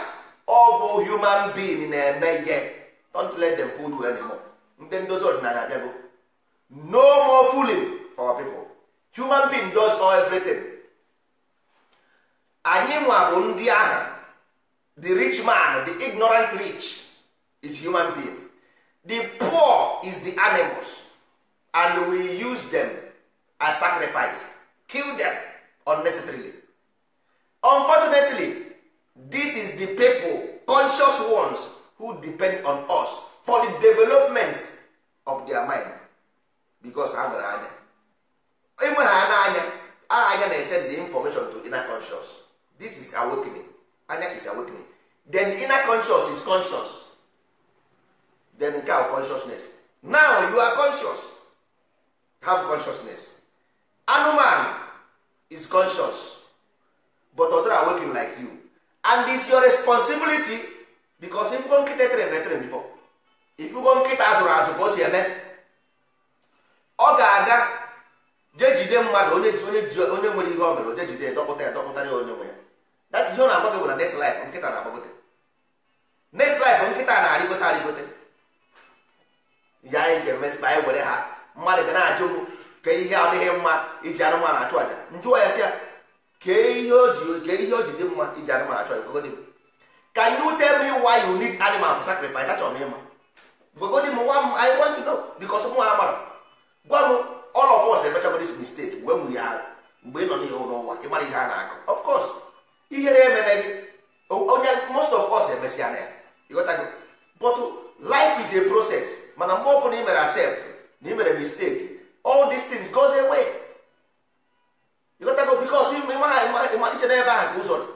ọ bụ human being na-eme ihe don't let them fool you anymore ndị ndozi ọdịnala abịago no more fooling for people human being does all everything anyị nwa bụ ndị ahụ the rich man the ignorant rich is human being the poor is the animals and we use them as sacrifice kill them unnecessarily unfortunately this is the people conscious ones who depend on us for the development of their mind because ha gara anya enwe ha n'anya anya na-esend the information to inner conscious this is awakening anya is awakening then the inner conscious is conscious then nke consciousness now you are conscious have consciousness anụmanụ is conscious but other are working like you and is your responsibility because if go nkịta etere retere before if go nkịta azụrụ azụ ka o si eme ọ ga-aga jee jide mmadụ onye onye nwere ihe ọ mere oje jide dọkpụta ya dọkpụtara ya onye nwe ya that ihe ọ na-agbago bụ na next life nkịta na-agbagote next life nkịta na-arịgote arịgote ya anyị ga anyị were ha mmadụ ga na-ajụ ka ihe adịghị mma iji anụmanụ achụ aja njụọ ya si ya kee ihe o ji ihe o ji dị mma iji anụmanụ achụ aja gogodi ka you tell me why you need animal for sacrifice achọrọ m ịma gogodi m i want to know because mụ amara gwa m all of us emechago this mistake wee nwe ya mgbe ị nọ n'ihe ụlọ ụwa ihe a na-akụ of course ihere onye most of na ya ịghọtago life is mana mgbe ọ bụla ị mere accept na ị mere all these things goes away ịghọtago bikos iche n'ebe ahụ ka ụzọ dị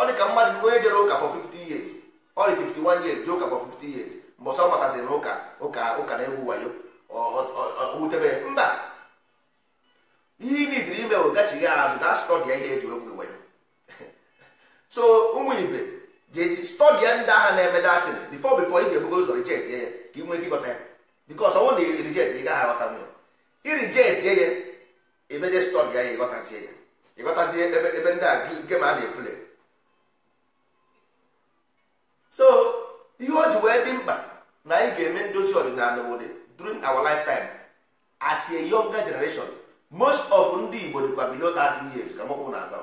ọ dị ka mmadụ onye jere ụka for 50 years ọ dị 51 years jee ụka for 50 years mbọsọ ọ mataziri ụka ụka ụka na-egwu wayo wutebe mba ihe imidiri ime bụ gachighị azụ na stọdịa ihe eji egwu wayo so ụmụ ibe jeti stọdịa ndị agha na-eme ị ga-ebugo ụzọ rijet ya ka ị nwee ya bikos ọnwụ na rijet ị gaghị aghọta irijetie ya emeje stọk ya ya ịghọtazie ya ịghọtazie ebe ndị a nke ma a na-epule so ihe o ji wee dị mkpa na anyị ga-eme ndozi ọdịnala obodo during our lifetime as a younger generation most of ndị Igbo dịkwa below 30 years ka mọkwụ na-aga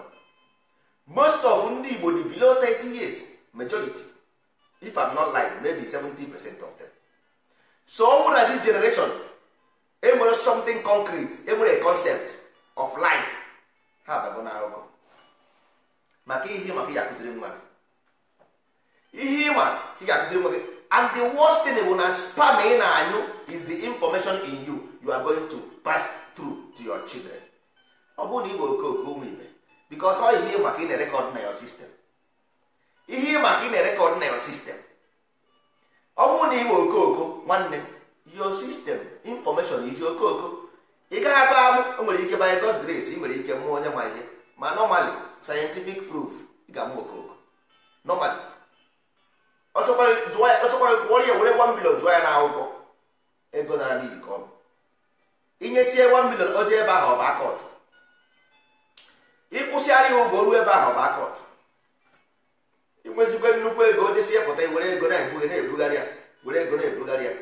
most of ndị Igbo dị below 30 years majority if I'm not lying maybe 70 percent of them so ọ nwụrụ na generation enwere something concrete enwere concept of life ha abago na akụkọ maka ihe maka ya akụziri nwa gị ihe ịma ka ị ga-akụziri nwa gị and the worst thing bụ na spam ị na-anyụ is the information in you you are going to pass through to your children ọ bụrụ na ị bụ okooko ụmụ ibe because ọ ihe maka ị na-erekọd na your system ihe ịma ka ị na-erekọd na your system ọ bụrụ na ị bụ okooko nwanne your system information is izi okooko ị gaghị aba amụ o nwere ike by God grace ị nwere ike mụọ onye ma ihe ma normally scientific proof ị ga-amụ okooko normally ọchọkwa were ya were 1 million jụọ ya na akwụkwọ ego nara n'iyi ka ọ bụ inyesie 1 million oje ebe ahụ ọba akọt ịkwụsịgharị ya ụgwọ ruo ebe ahụ ọba akọt inwezikwe nnukwu ego ojesie pụta were ego na-ebugharị ya were ego na-ebugharị ya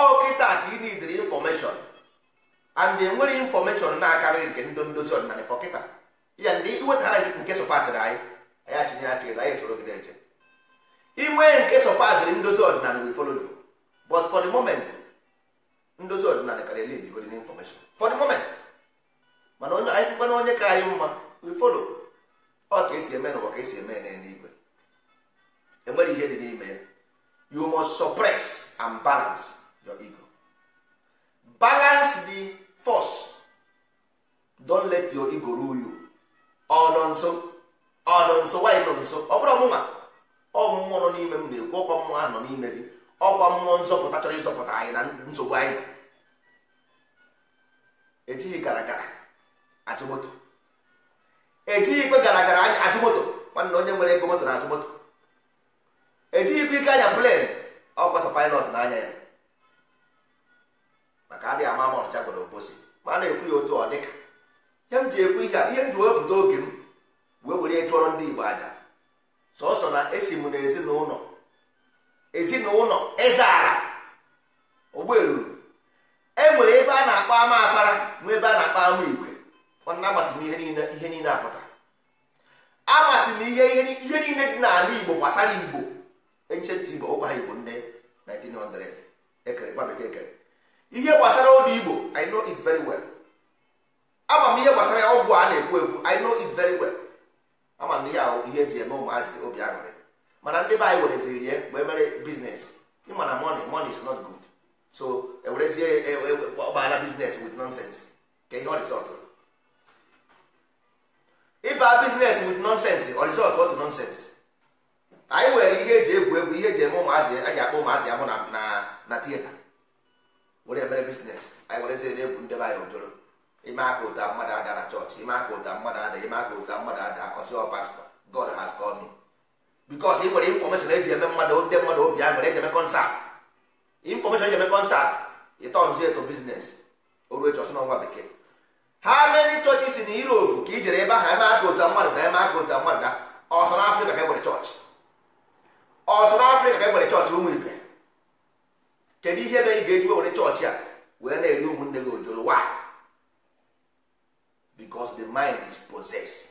ọkịta kịta ka ị nidiri infọmeshọn and enwere infọmeshọn na-akarịghị nke ndị ndozi ọdịnala fọ kịta ya ndị iwetara nke sọpasịrị anyị anyị achinye aka elu anyị soro gị na-eje inwe nke sọpasịrị ndozi ọdịnala we follow you but for the moment ndozi ọdịnala karịa lid godin infọmeshọn for the moment mana onye anyị fụkwana onye ka anyị mma we follow ọ oh, ka esi eme n'ụwa ka esi eme n'eluigwe enwere ihe dị n'ime ya you must suppress and balance your ego balance the force don't let your ego rule you ọ oh, nọ nso ọ oh, nọ nso wanyị nọ nso ọ oh, bụrụ ọmụma ọ mmụọ nọ n'ime m na-ekwu ọkwa mmụọ ahụ nọ n'ime gị ọkwa mmụọ nzọpụta chọrọ ịzọpụta anyị na nsogbu anyị ejighị gara gara achụ moto ejighị ikpe gara gara anya achụ moto nwanne onye nwere ego moto na achụ moto ejighị ikpe ike anya plen ọkwasa pilot n'anya ya maka adịghị ama ma ọnịcha gwara oposi ma a na-ekwu ya otu ọ dịka ihe m ji ekwu ihe a ihe m ji wepụta oge m wee were chụọrọ ndị igbo aja sọsọ na esi m n'ezinụlọ ezinụlọ ịzara ogberuru e nwere ebe a na-akpọ ama afara nwee ebe a na-akpọ ama igwe ọna amasị m ihe niile apụtara agbasi m ihe ihe niile dị n'ala igbo gbasara igbo enchentị igbo ụkwa ha igbo nne 1900 ekere gba bekee ekere ihe gbasara ụlọ igbo i know it very well ama m ihe gbasara ya ọgwụ a na-ekwu ekwu i know it very well ama m ya ihe eji eme ụmụazị obi aṅụrị mana ndị be anyị wereziri ya wee mere biznes ịmana money money is not good so ewerezie e, e, e, ọgbara biznes with nonsense ka ihe ọrizọt ịba biznes with nonsense ọrizọt otu nonsense anyị nwere ihe eji egwu egwu ihe eji eme ụmụazị a ga-akpọ ụmụazị ahụ na na tieta were mere biznes anyị were ezi na-ebu ndị be anyị ojoro ime aka ụta mmadụ ada na chọọchị ime aka ụta mmadụ ada ime aka ụta mmadụ ada ọsịọ pastọ god has called me because ị nwere infọmeshọn eji eme mmadụ ndị mmadụ obi a nwere eji eme kọnsat infọmeshọn eji eme kọnsat ịtọnzi eto biznes oru echi ọsọ n'ọnwa bekee ha meri chọọchị si na europe ka i jere ebe ahụ eme aka ụta mmadụ na eme aka ụta mmadụ na ọsọ n'afrịka ka e nwere chọọchị ọsọ n'afrịka ka e nwere chọọchị ụmụ ibe kedu ihe mere ị ga-eji were chọọchị a wee na-eri ụmụnne gị ojoro why because the mind is possessed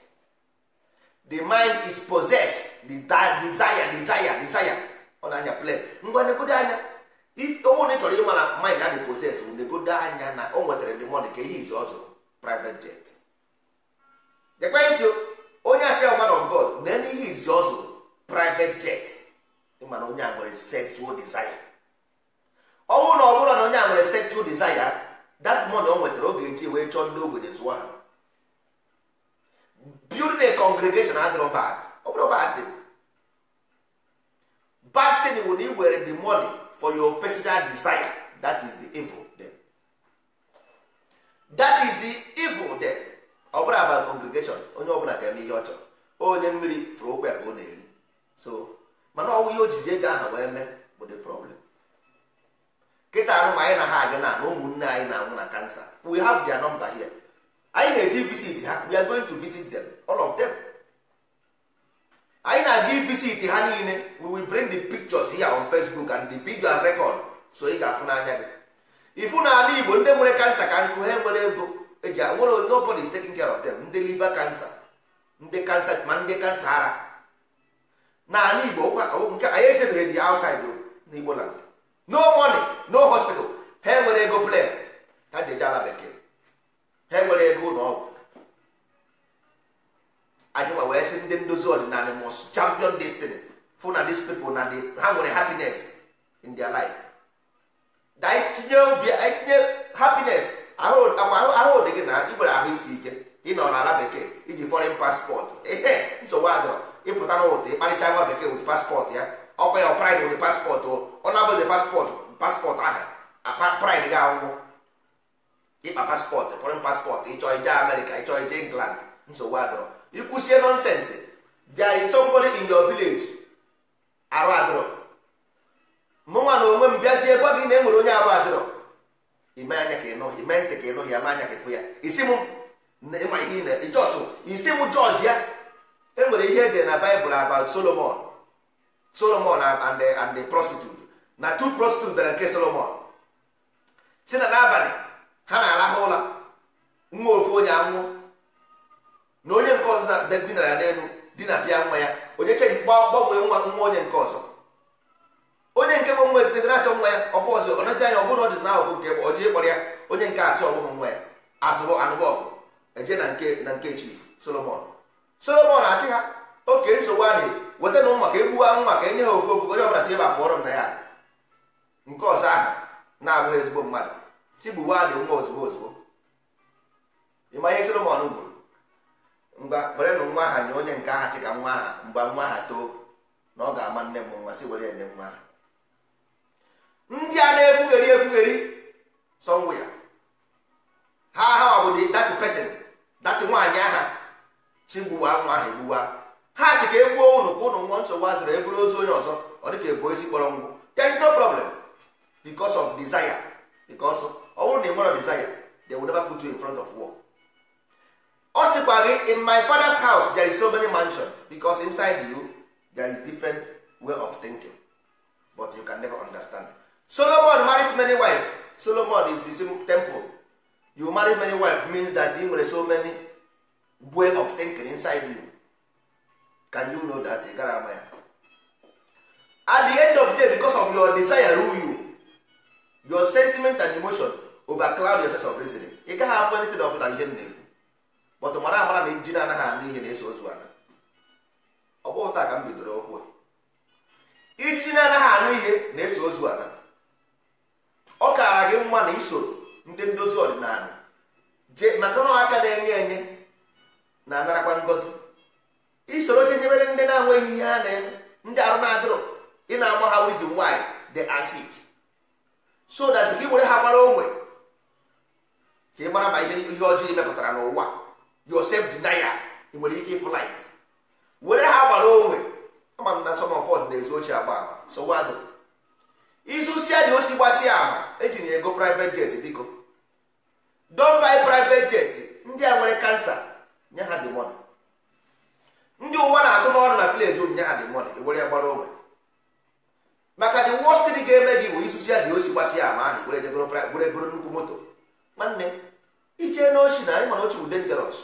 the mind is possessed the desire desire desire ọ na-anya plan ngwa negodo anya onwe chọrọ ịma na mind adị possessed negodo anya na o nwetara the money ka ihe izu ọzọ private jet ekwentị onye asị man of God na ihe izi ọzọ private jet ịma na onye a nwere sexual desire ọnwụ na ọ na onye a nwere sexual desire that money o nwetara oge nji wee chọọ ndị ogbenye zụọ ha building a congregation adịrọ bad ọ bụrụ bad bad thing bụ na ị were the money for your personal desire that is the evil there that is the evil there ọ bụrụ aba congregation onye ọbụla ga-eme ihe ọ chọrọ onye mmiri fụrụ okwe ka ọ na-eri so mana ọnwụ ihe o jizi ego aha wee mee bụ the problem kịta anụ anyị na ha abịa na na ụmụnne anyị na-anwụ na kansa we have their number here anyị na-eji visit ha we are going to visit them all of them anyị na-aga visit ha niile we will bring the pictures here on Facebook and the video and record so ị ga-afụ n'anya gị ifu na ala Igbo ndị nwere kansa ka nkụ ha nwere ego eji nwere nobody is taking care of them ndị liver cancer ndị kansa ma ndị kansa ara na ala Igbo nke anyị echebeghị dị outside n'Igbo land no money no hospital ha enwere ego plan ha ji eje ala bekee ha enwere ego ụlọ ọgwụ anyịwa wee sị ndị ndozi ọdịnala mos champion destiny fụ na these people na ha nwere happiness in their life tinye obi tinye happiness ahụ dị gị na ị nwere ahụ isi ike ị na ala bekee iji foreign passport ehe nsogbu adọrọ ịpụta n'ụlọ ịkparịcha nwa bekee with passport ya ọkwa ya pride with paspọtụ ọ na-abụ paspọtụ passport passport aha pride gị akwụkwọ ịkpa paspọtụ foreign paspọtụ ịchọ ije America ịchọ ije England nsogbu adọrọ ịkwụsie nonsense there is somebody in your village arụ adọrọ nwa na onwe m bịazie gwa gị na enwere onye arụ adọrọ ime anya ka ịnụ ime ntị ka ịnụ ya ma anya ka ịfụ ya isi m ịma ihe ị na-ejọtụ isi m jọji ya enwere ihe edere na Baịbụl about Solomon solomon and the, and the prostitute na two prostitute bere nke solomon si na n'abalị ha na-arahụ ụla nwa ofu onye anwụ na onye nke ọzọ dinara ya n'elu di na pịa nwa ya onye cheji gbanwee nwa nwa onye nke ọzọ onye nke bụ nwa etitezi na-achọ nwa ya ọfụ ọzọ ọ nazi anya ọ bụrụ na ọ dị na ahụ nke ọ ji ịkpọrọ ya onye nke asị ọbụghị nwa ya atụrụ anụbọ ọgụ eje na nke na nke chief solomon solomon asị ha oke nsogbu adị weta na maka egbuwa nwa ka enye ha ofu ofu onye ọbụla si ebe pụọrọ m na ya nke ọzọ ahụ na-abụghị ezigbo mmadụ si gbuwa adị nwa ozugbo ozugbo ịma ihe Solomon gburu ngwa were na nwa aha nye onye nke aha si ka nwa aha mgba nwa aha too na ọ ga-ama nne m nwa si were enye nwa aha ndị a na-ekwugheri ekwugheri sọnwụ ya ha aha ọ bụ dị datị pesin datị nwaanyị aha si gbuwa nwa aha egbuwa ha si ka e gbuo ụnụ ka ụnụ nwụọ nsogbu adịrị eburu ozu onye ọzọ ọ dịka ebu kpọrọ there is no problem because of desire because ọ bụrụ na ị nwere desire they will never put you in front of war ọ sịkwa gị in my father's house there is so many mansion because inside you there is different way of thinking but you can never understand solomon marries many wives solomon is the same temple you marry many wives means that you nwere so many way of thinking inside you can you know that ị gara ama ya at the end of the day because of your desire rule you your sentiment and emotion overcloud your sense of reasoning ị gaghị afụ anything ọbụla ihe m na-ekwu but mara amara na ndị na-anaghị anụ ihe na-eso ozu ana ọ bụghị taa ka m bidoro okwu a ijiji na-anaghị anụ ihe na-eso ozu ana ọ kaara gị mma na isoro ndị ndozi ọdịnala je maka na aka na-enye enye na-anarakwa ngozi isoro chenyebere ndị na-enweghị ihe ane na-eme ndị arụ na adịrụ ị na-agba ha wizin nwaanyị dị acid so that gị were ha gbara onwe ka ị mara ma ihe ihe ọjọọ mepụtara n'ụwa yosef dinaya ị nwere ike flit were ha gbara onwe ama na nsọmfọd na-ezu ochie agba ama sowado izusia dị osi gbasia ama eji na ego private jet biko don bi private jet ndị a nwere kansa nye ha dị ndị ụwa na-atụ n'ọrụ na vileji onyinye ha dị mọni were gbara onwe maka the worst thing ga-eme gị bụ isusi ya dị osi gbasi ya ama ahụ were egoro nnukwu moto nwanne ije n'ochi na anyị mana ochi bụ dangeros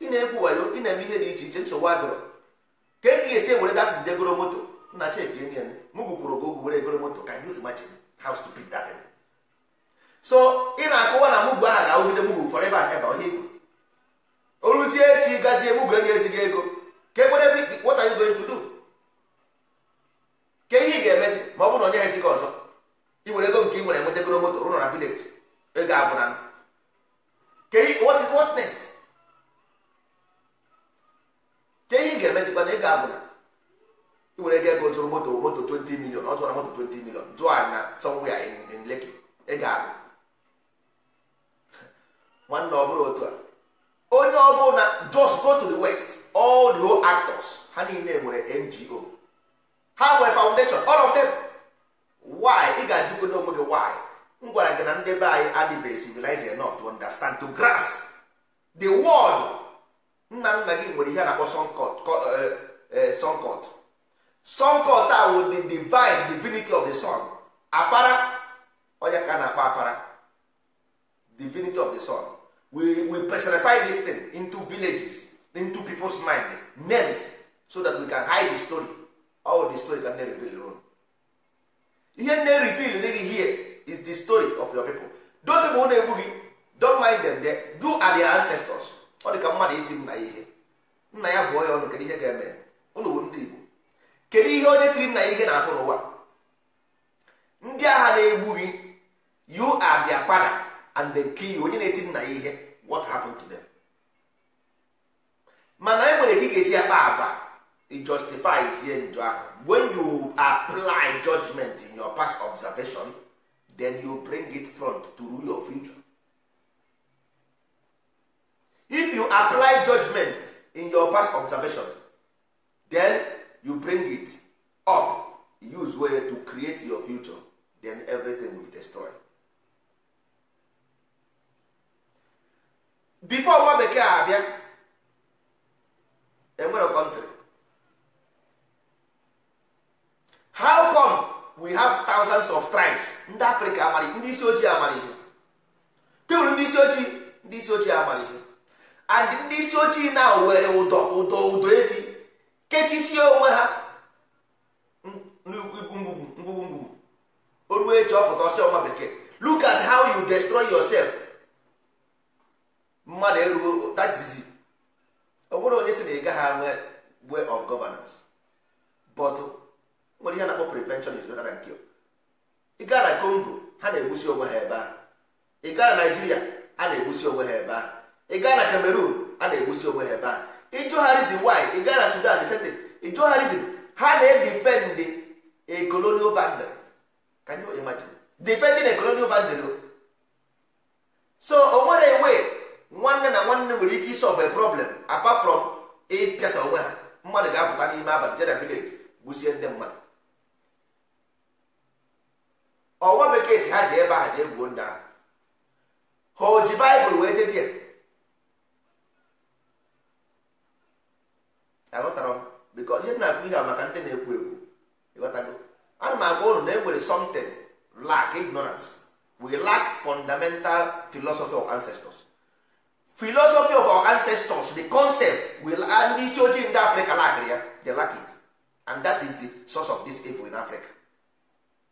ị na-egwu wayo ị na-eme ihe dị iche iche nsogbu adịrọ ka e ga-esi ewere datị nje goro moto nna cheki enyen m gwukwuru gị ogwu were egoro moto ka you imagine how stupid that so ị na akụwa na mụgwu aha ga-awụgide mụgwu forever and ever onye igwu oruzie echi gazie ebugo ga ezi gị ego ke kwere what are ke ihe ị ga-emezi ma ọ bụrụ na onye ha echighị ọzọ ị were ego nke ị nwere moto rụrụ na village ego abụna ke ke ihe ị ga abụ na ego abụna ị were ego ego zụrụ moto moto 20 million ọ zụrụ moto 20 million zụọ na somewhere in ego abụ ọ bụrụ otu a onye ọ na just go to the west all the whole actors ha niile nwere ngo ha nwere foundation all of them why ị ga-ajụgo n'onwe gị why m gwara gị na ndị be anyị adịbeghị civilized enough to understand to grass the world nna nna gị nwere ihe a na-akpọ sunkot eh, eh, sunkot a wụ the divine divinity of the sun afara onye ka na-akpọ afara divinity of the sun we, we personify this thing into villages into people's mind names so that we can hide the story all the story can reveal your ihe nne reveal gị hear is the story of your people those people na-egbu gị don mind them they do are their ancestors ọ dị ka mmadụ iti nna ya ihe nna ya bụọ ya ọnụ kedu ihe ga-eme ụlọ bụ ndị Igbo kedu ihe onye tiri nna ya ihe na-afụ n'ụwa ndị agha na-egbu gị you are their father and they kill you onye na-eti nna ya ihe what happened to them mana e nwere ka ị ga-esi akpa agwa in njọ ahụ when you apply judgment in your past observation then you bring it front to rule your future if you apply judgment in your past observation then you bring it up use way to create your future then everything will be destroyed before nwa bekee abịa enwere kọntrị how come we have thousands of tribes ndị africa amara ndị isi ojii amara ihe ndị isi ojii ndị isi ojii amara ihe and ndị isi ojii na were ụdọ ụdọ ụdọ efi kechisie onwe ha n'ikwu ngwugwu ngwugwu ngwugwu o ruo echi ọpụta ọsị ọnwa bekee look at how you destroy yourself mmadụ erughị tatizi ọ bụrụ onye si na ị gaghị anwe way of governance but nwere ihe na-akpọ prevention is better than cure ị gaa na Congo ha na-egbusi onwe ha ebe a ị gaa na Nigeria a na-egbusi onwe ha ebe a ị gaa na Cameroon a na-egbusi onwe ha ebe ahụ ịjụgharịzi why ị gaa na Sudan sete ịjụgharịzi ha na-edefend a colonial boundary can you imagine defending a colonial boundary so o nwere way nwanne na nwanne nwere ike isolve a problem apart from ịpịasa onwe ha mmadụ ga-apụta n'ime abalị jena vileji gbuzie ndị mmadụ ọnwa bekee si ha ji ebe ha jee gbuo ndị ahụ ha o ji baịbụl wee jedi ya aghọtara m bikọ ihe na-akụ ihe a maka ndị na-ekwu ekwu ịghọtago ana m agwa ụnụ na e nwere something lack ignorance we lack fundamental philosophy of ancestors philosophy of our ancestors the concept will ndị isi ojii ndị Africa lakịrị ya the lack it and that is the source of this evil in africa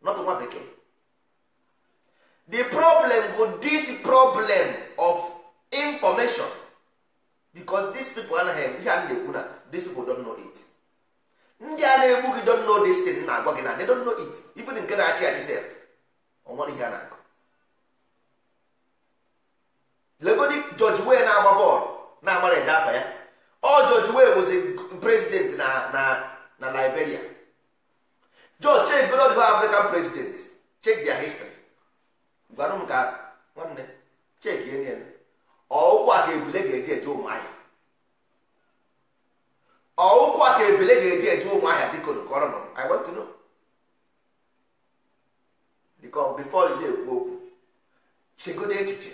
not nwa bekee the problem bụ this problem of information because these people anaghị ihe a na-ekwu na these people don't know it ndị a na-egbu gị don't know this thing na-agwa gị na they don't know it even nke na-achị achị sef ọ nwere ihe a na bụzi prezident na na na liberia jo check period of african president check dia history gwanụ m ka nwanne check ihe ọụkwụ a ebule ga-eji eje ụmụahịa ọụkwụ ebule ga-eji eje ụmụahịa biko kọrọ nọ i want to know before you na-ekwu okwu chegodo echiche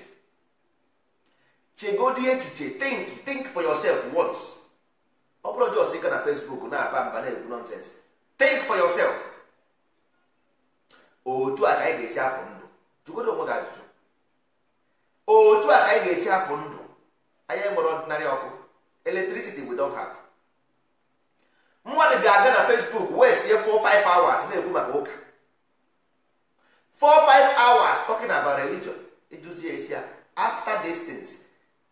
chegodo echiche think think for yourself once ọ bụrụ na facebook na-aba mba na-ekwu nonsense think for yourself otu a ka anyị ga-esi apụ ndụ jụgodo onwe gị ajụjụ otu a ka anyị ga-esi apụ ndụ anyị nwere ọdịnarị ọkụ electricity we don't have mmadụ ga-aga na facebook west ye 4-5 hours na-ekwu maka ụka 4 hours talking about religion after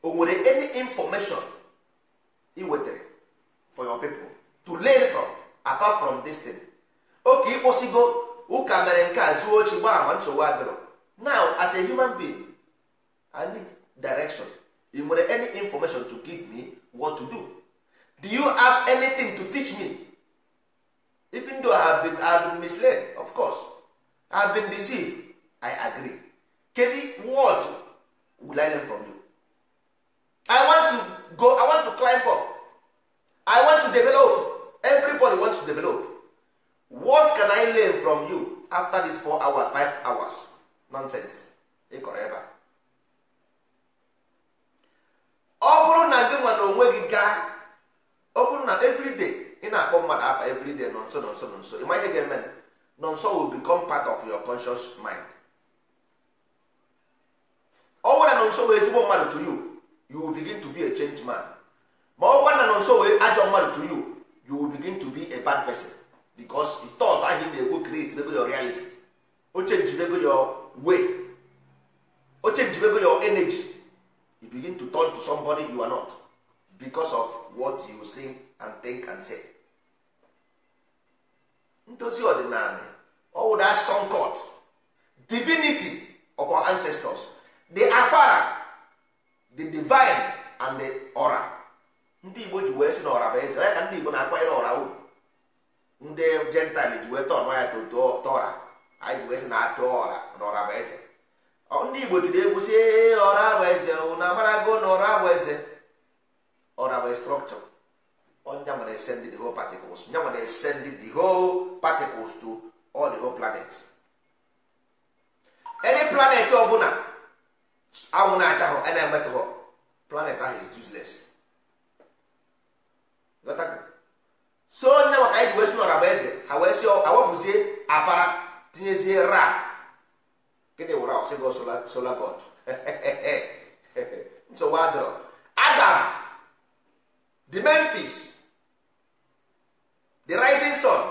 o nwere any information ị wetara for your pipo to learn from apart from this thing oke ịkpụsigo ụka mere nke a zuo ochi gbaa ma nsogbu adịrọ now as a human being i need direction you nwere any information to give me what to do do you have anything to teach me even though i have been, I have been misled of course i have been deceived i agree kedu what will i learn from you i want to go i want to climb up i want to develop everybody wants to develop what can i learn from you after these four hours five hours nonsense ị ọ bụrụ na gị nwa onwe gị gaa ọ bụrụ na everyday ị na-akpọ mmadụ afa everyday nọ nso nọ nso nọ nso ịma ga-eme nọ nso will become part of your conscious mind ọ bụrụ na nọ nso wee ezigbo mmadụ to you you will begin to be a changed man ma ọ gwa na nọ nso wee ajọ mmadụ to you you will begin to be a bad person because the thought ahụ na go create nego your reality o change your way o change your energy you begin to turn to somebody you are not because of what you say and think and say ndozi ọdịnala ọwụ that sun god divinity of our ancestors the afara the divine and the ndị igbo ji wee sị na ọra bụ eze onye ka ndị igbo na-akwanyere ọra uru ndị jentil ji wee tọọ ya tọra anyị ji wee sị na atụ ọra na bụ eze ndị igbo tiri egwu si ọra bụ eze na amarago na ọra bụ eze ọra bụ strọkchọ onya nwere send the whole particles nya nwere send the whole particles to all the whole planets any planet ọbụla anwụ na-acha hụ a na planet ahụ is useless so onye maka anyị ji wee si n'ọra bụ eze ha wee si awapụzie afara tinyezie ra gịnị wụra ọsịgo sola god nsogbu adọrọ adam the memphis the rising sun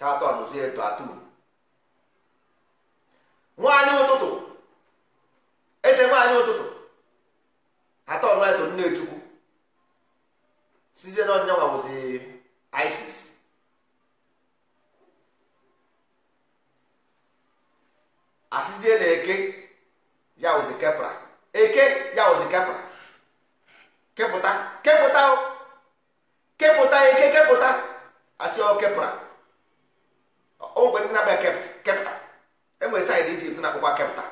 ha eto nwaanyị ụtụtụ eze nwaanyị ụtụtụ atọ ọnụ to nne chukwu sizie na ọnyanwa bụzi isis asịzie na eke ya wụzi kepra eke ya wụzi kepra kepụta kepụta kepụta eke kepụta asị ọ kepra o e nwere ndị na-abịa kepta enwere saịdị ijipt na-akpụkwa kepta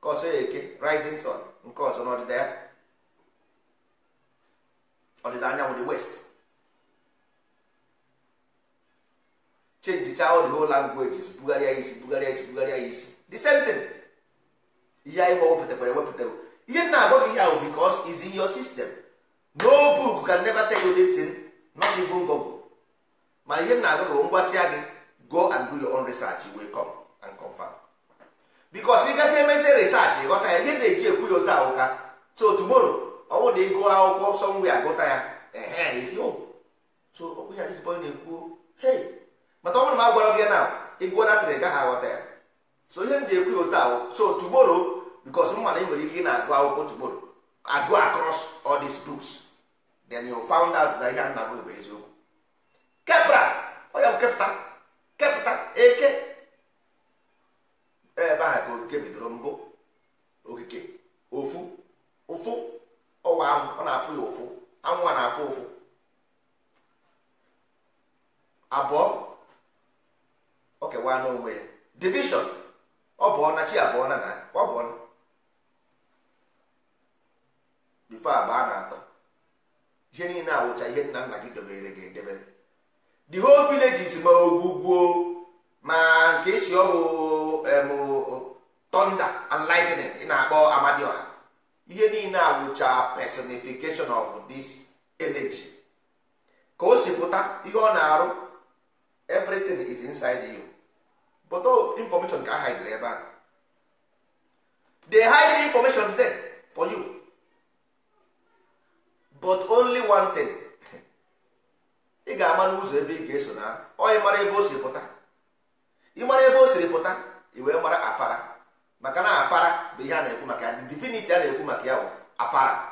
nke ọzọ ya eke rising sun nke ọzọ n'ọdịda ya ọdịda anyanwụ the west change the whole language bugharịa isi bugharịa isi bugharịa isi the same thing ihe anyị wepụtakwara ewepụtara ihe na agwa gị ihe ahụ because is in your system no book can never tell you this thing not even Google mana ihe na agwa gị ngwasịa gị go and do your own research you will come and confirm bikos ị gasị emezi research ghọta ya ihe na-eji ekwu ya ote ahụka so tomorrow ọ bụrụ na ịgụ akwụkwọ sọnwụ ya gụta ya so okwu ya dịzibọ na-ekwu hey mata ọ bụrụ na a gwara gị na ịgụọ natịrị gaghị aghọta ya so ihe m ji ekwu ya ote ahụ so tomorrow bikos mma na ị nwere ike ị na-agụ akwụkwọ tomorrow agụ across all these books then you found out na ihe oh, a na-agụ bụ eziokwu kepra ọ ya bụ kepụta kepụta eke ebe a ka okike bidoro mbụ okike ofu ụfụ ọwa anwụ ọ na-afụ ya ụfụ anwụ a na-afụ ụfụ abụọ o kewa n'onwe ya division ọ bụ ọna chi abụọ na na ọ bụ ọna bifo abụọ na atọ ihe niile awụcha ihe nna nna gị dobere gị edebere the whole village is ma ogwugwuo ma nke esi ọhụụ personification of this energy ka o si pụta ihe ọ na-arụ everything is inside you but all information ka hide ebe a they hide information there for you but only one thing ị ga-ama n'ụzọ ebe ị ga-eso na onye mara ebe o siri pụta ị mara ebe o siri pụta ị wee mara afara maka na afara bụ ihe a na-ekwu maka ya divinity a na-ekwu maka ya bụ afara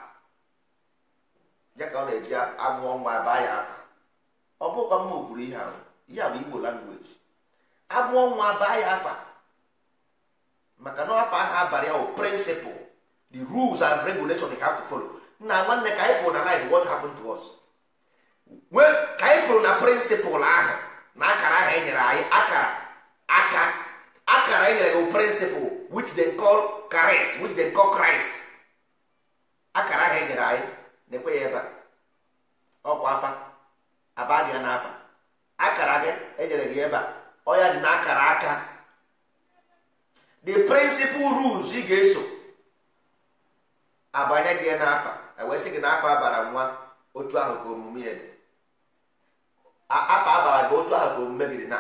ya ka ọ na-eji amụọ nwa baa ya afa ọ bụkwa mma kwuru ihe ahụ ihe bụ igbo langweji amụọ nwa baa ya afa maka na afa ahụ abalị ahụ prịnsịpụl the rules and regulations they have to follow nna nwanne ka anyị pụrụ na life what happened to us wee ka anyị pụrụ na prịnsịpụl ahụ na akara ahụ e nyere anyị akara aka akara e nyere gị prịnsịpụl which they call Christ which they call Christ akara ahụ e nyere anyị na-ekwe ya ebe a ọkwa afa aba dị ya n'afa akara gị enyere gị ebe a ọya dị n'akara aka the principal rules ị ga-eso abanye gị n'afa e wee sị gị n'afa abara nwa otu ahụ ka omume ya dị afa abara gị otu ahụ ka omume gị dị na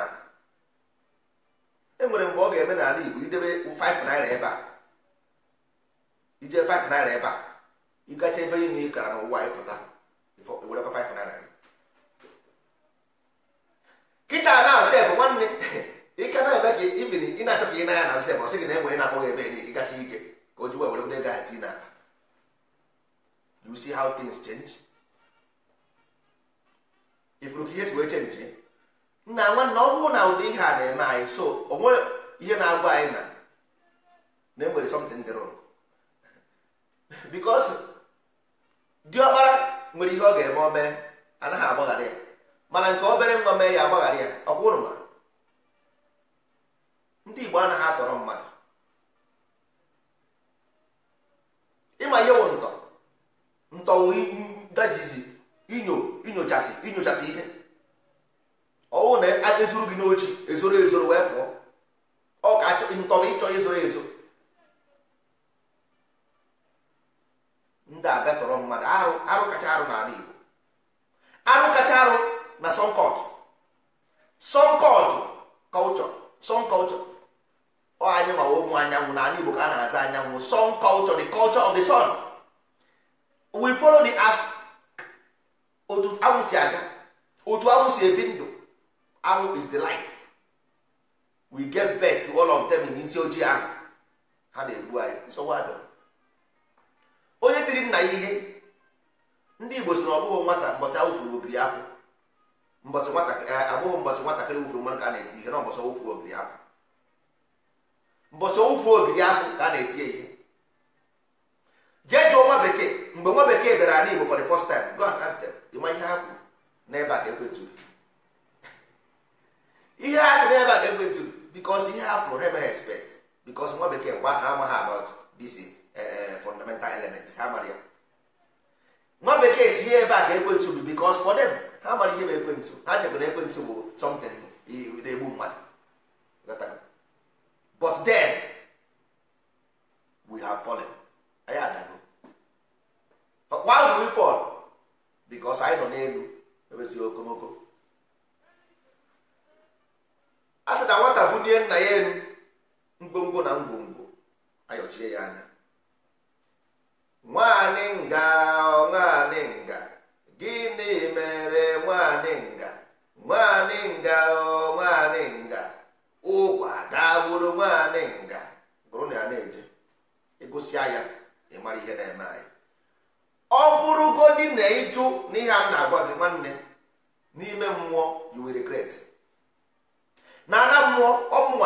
e nwere mgbe ọ ga-eme n'ala Igbo idebe 5 naira ebe a ije 5 naira ebe a ịgacha ebe ime ị gara n'ụwa ịpụta kịta na sef nwanne ike na eme ka ibiri ị na-achọ ka ị nanya na sef ọsị gị na enwe na-akpọghị ebe niile gasị ike ka o ji wee were were gaa tii na you see how things change ifuru ka ihe si wee chenji nna nwanne ọ bụrụ na ụdị ihe a na-eme anyị so o nwere ihe na-agwa anyị na na enwere something dị wrong because diọkpara nwere ihe ọ ga-eme obere anaghị agbaghara ya mana nke obere nwa mee ya agbaghara ya ọkwụrụ ma ndị Igbo anaghị atọrọ mmadụ ịma ihe wụ ntọ ntọwụ gajizi inyo inyochasị inyochasị ihe ọwụ na a ezuru gị n'ochi ezoro ezoro wee pụọ ọ ka ntọ ịchọ ezoro ezo ndị abịa tọrọ mmadụ arụ arụ kacha arụ n'ala Igbo arụ kacha arụ na sọnkọt sọnkọt kọlchọ sọnkọlchọ ọ anyị gbawa ụmụ anyanwụ n'ala Igbo ka a na-aza anyanwụ sọnkọlchọ the culture of the sun we follow the as otu anwụ si aga otu anwụ si ebi ndụ anwụ is the light we get birth to all of them n'isi ojii ahụ ha na-egbu anyị nsogbu adọrọ onye tiri nna ya ihe ndị igbo si na ọbụghị nwata mbọchị awụfuru ogiri akwụ mbọchị abụghị mbọchị nwatakịrị wụfuru mmanụ ka a na-eti ihe na mbọchị awụfu obiri akwụ mbọchị awụfu ogiri akwụ ka a na-eti ihe jee jụọ nwa bekee mgbe nwa bekee bịara ala igbo for the first time go and ask them ịma ihe ha kwuru n'ebe a ka ekwentụrụ ihe ha si n'ebe a ka ekwentụrụ because ihe ha fụrụ ha emeghị expect because nwa bekee mgbe ahụ amaghị about this Eh, fundamental elements ha mara ya nwa bekee si ebe a ka ekwentị bụ because for them ha mara ihe bụ ekwentị ha chebere ekwentị bụ something na-egbu mmadụ but then we have fallen anyị adago why do we fall because anyị nọ n'elu ebezighị okomoko a sị na nwata bunie nna ya elu ngwongwo na ngwongwo ayọchie ya anya nwanyị nga nwanyị nga gịnị mere nwanyị nga nwanyị nga nwanyị nga ụkwa dagburu nwanyị nga bụrụ na ya na-eje egosi ya ịmara ihe na-eme anyị ọ bụrụgodi na ịjụ n'ihe a na-agwa gị nwanne n'ime mmụọ yiwere will regret na ana mmụọ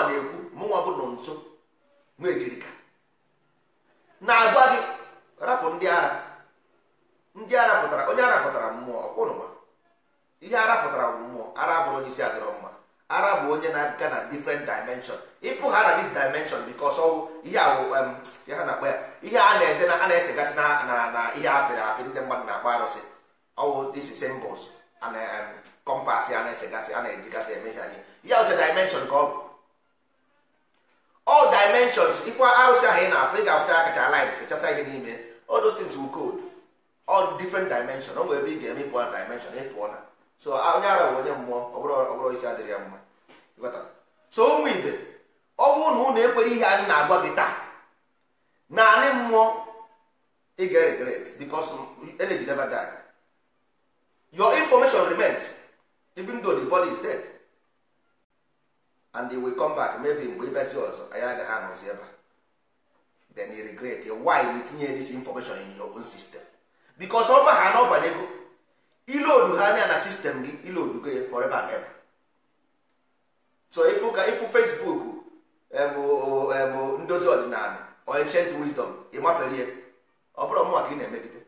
na-ekwu mụnwa bụ nọ nso nwa ejirika na-agwa gị rapụ ndị ara ndị ara pụtara onye ara pụtara mmụọ ọkwụnụma ihe ara pụtara bụ mmụọ ara bụrụ isi adịrọ mma ara bụ onye na-aga na different dimension ịpụ ha na this dimension because ọwụ ihe awụ ha na-akpa ya ihe a na-ede na a na-esegasị na na ihe apịrị apị ndị mmadụ na-akpa arụsị ọwụ this symbols na kompas a na-esegasị a na-ejigasị eme ihe anyị ihe ọcha dimension ka ọ bụ ọ dimensions ife arụsị ahụ ị na-afụ ị ga-afụcha akacha line sechasa ihe n'ime all those things will code all different dimension o nwere ebe ị ga-eme na dimension ịpụọ na so onye ara bụ onye mmụọ ọ bụrụ isi adịrị ya mma so ụmụ ibe ọ bụrụ na ụnụ ekwere ihe anyị na-agwa gị taa naanị mmụọ ị ga-regret because energy never die your information remains even though the body is dead and they will come back maybe mgbe ibezi ọzọ anyị agaghị anọzi ebe a then you regret why you tinye this information in your own system because ọ ma ha na ọbanye ego ha anya na sistem gị ilodu gị forever and ever so ifu ka ifu facebook bụ um, um, ndozi ọdịnala or ancient wisdom ya ọ bụrụ mụnwa ka ị na-emegide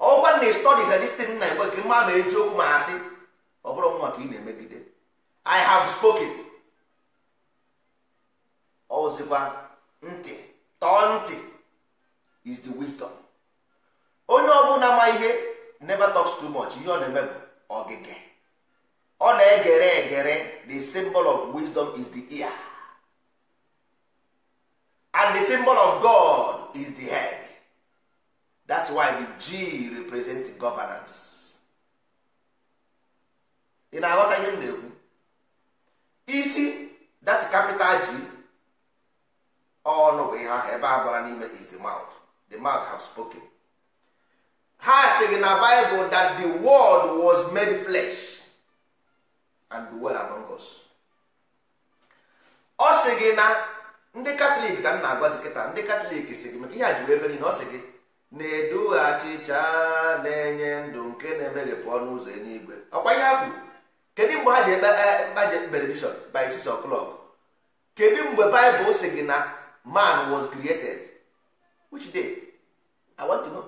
ọgwa na istọdi ha na igwe gị mma ma eziokwu ma ha sị ọ bụrụ mụnwa ka ị na-emegide i have spoken ọzikwa ntị tọọ ntị is the wisdom onye ọbụla ma ihe never talks too much ihe ọ na-eme bụ ọ na-egere egere the symbol of wisdom is the ear and the symbol of God is the head that's why the G represent governance ị na-aghọta ihe m na-ekwu isi that capital G ọnụ bụ ihe ahụ ebe a bara n'ime is the mouth the mouth have spoken ha sịrị na Bible that the world was made flesh and dwell among us ọ sị gị na ndị katọlik ka m na-agwazi kịta ndị katọlik si gị maka ihe a ji ebe niile ọ sị gị na-edu achịcha na-enye ndụ nke na-emeghepụ ọnụ ụzọ eluigwe ọkwa ihe ha kwuru kedu mgbe ha ji ekpe benediction eh, by six o'clock kedu mgbe Bible sị gị na man was created which day i want to know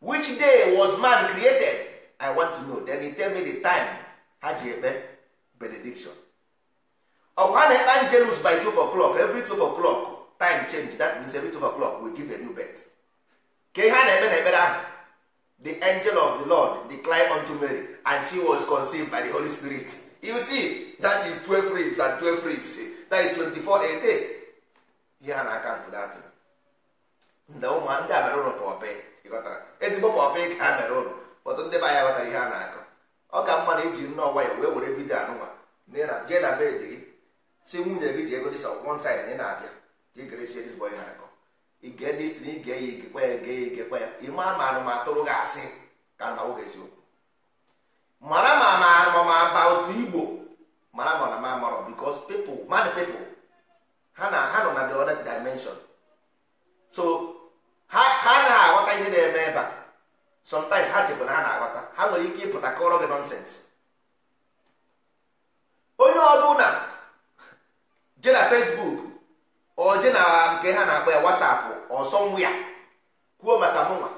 which day was man created i want to know then he tell me the time ha ji ekpe benediction ọkwa a na-ekpe angelus by two o'clock every two o'clock time change that means every two o'clock we give a new birth ka ihe a na-ekpe na ekpere ahụ the angel of the lord declined unto mary and she was conceived by the holy spirit you see that is 12 ribs and 12 ribs that is 24 a day ihe ha na-aka ntụ datụ ndị ụmụ ndị a mere ụlọ pọpị ịghọtara ezigbo pọpị ka ha mere ụlọ ọtụ ndị be anya ghọtara ihe a na-akọ ọ ka mma na iji nne ọgwa ya wee were vidio anụnwa jee na dị gị si nwunye gị ji ego dịsa one side ị na-abịa jigrechiedizbo onye na-akọ ige ndị stiri ige ya igekwa ya ige ya igekwa ya ime ama anụmatụrụ gị asị ka na oge eziokwu mara ma ma ma ba otu igbo mara ma na ma marọ bikos pepl mmadụ pepl ha na ha nọ na the other dimension so ha anaghị aghọta ihe na-eme ebe a sometimes ha chekwa na ha na-aghọta ha nwere ike ịpụta kọrọ gị nọnsens onye ọbụla je na facebook ọ je na nke ha na-akpọ ya whatsapp ọsọ ya kwuo maka mụnwa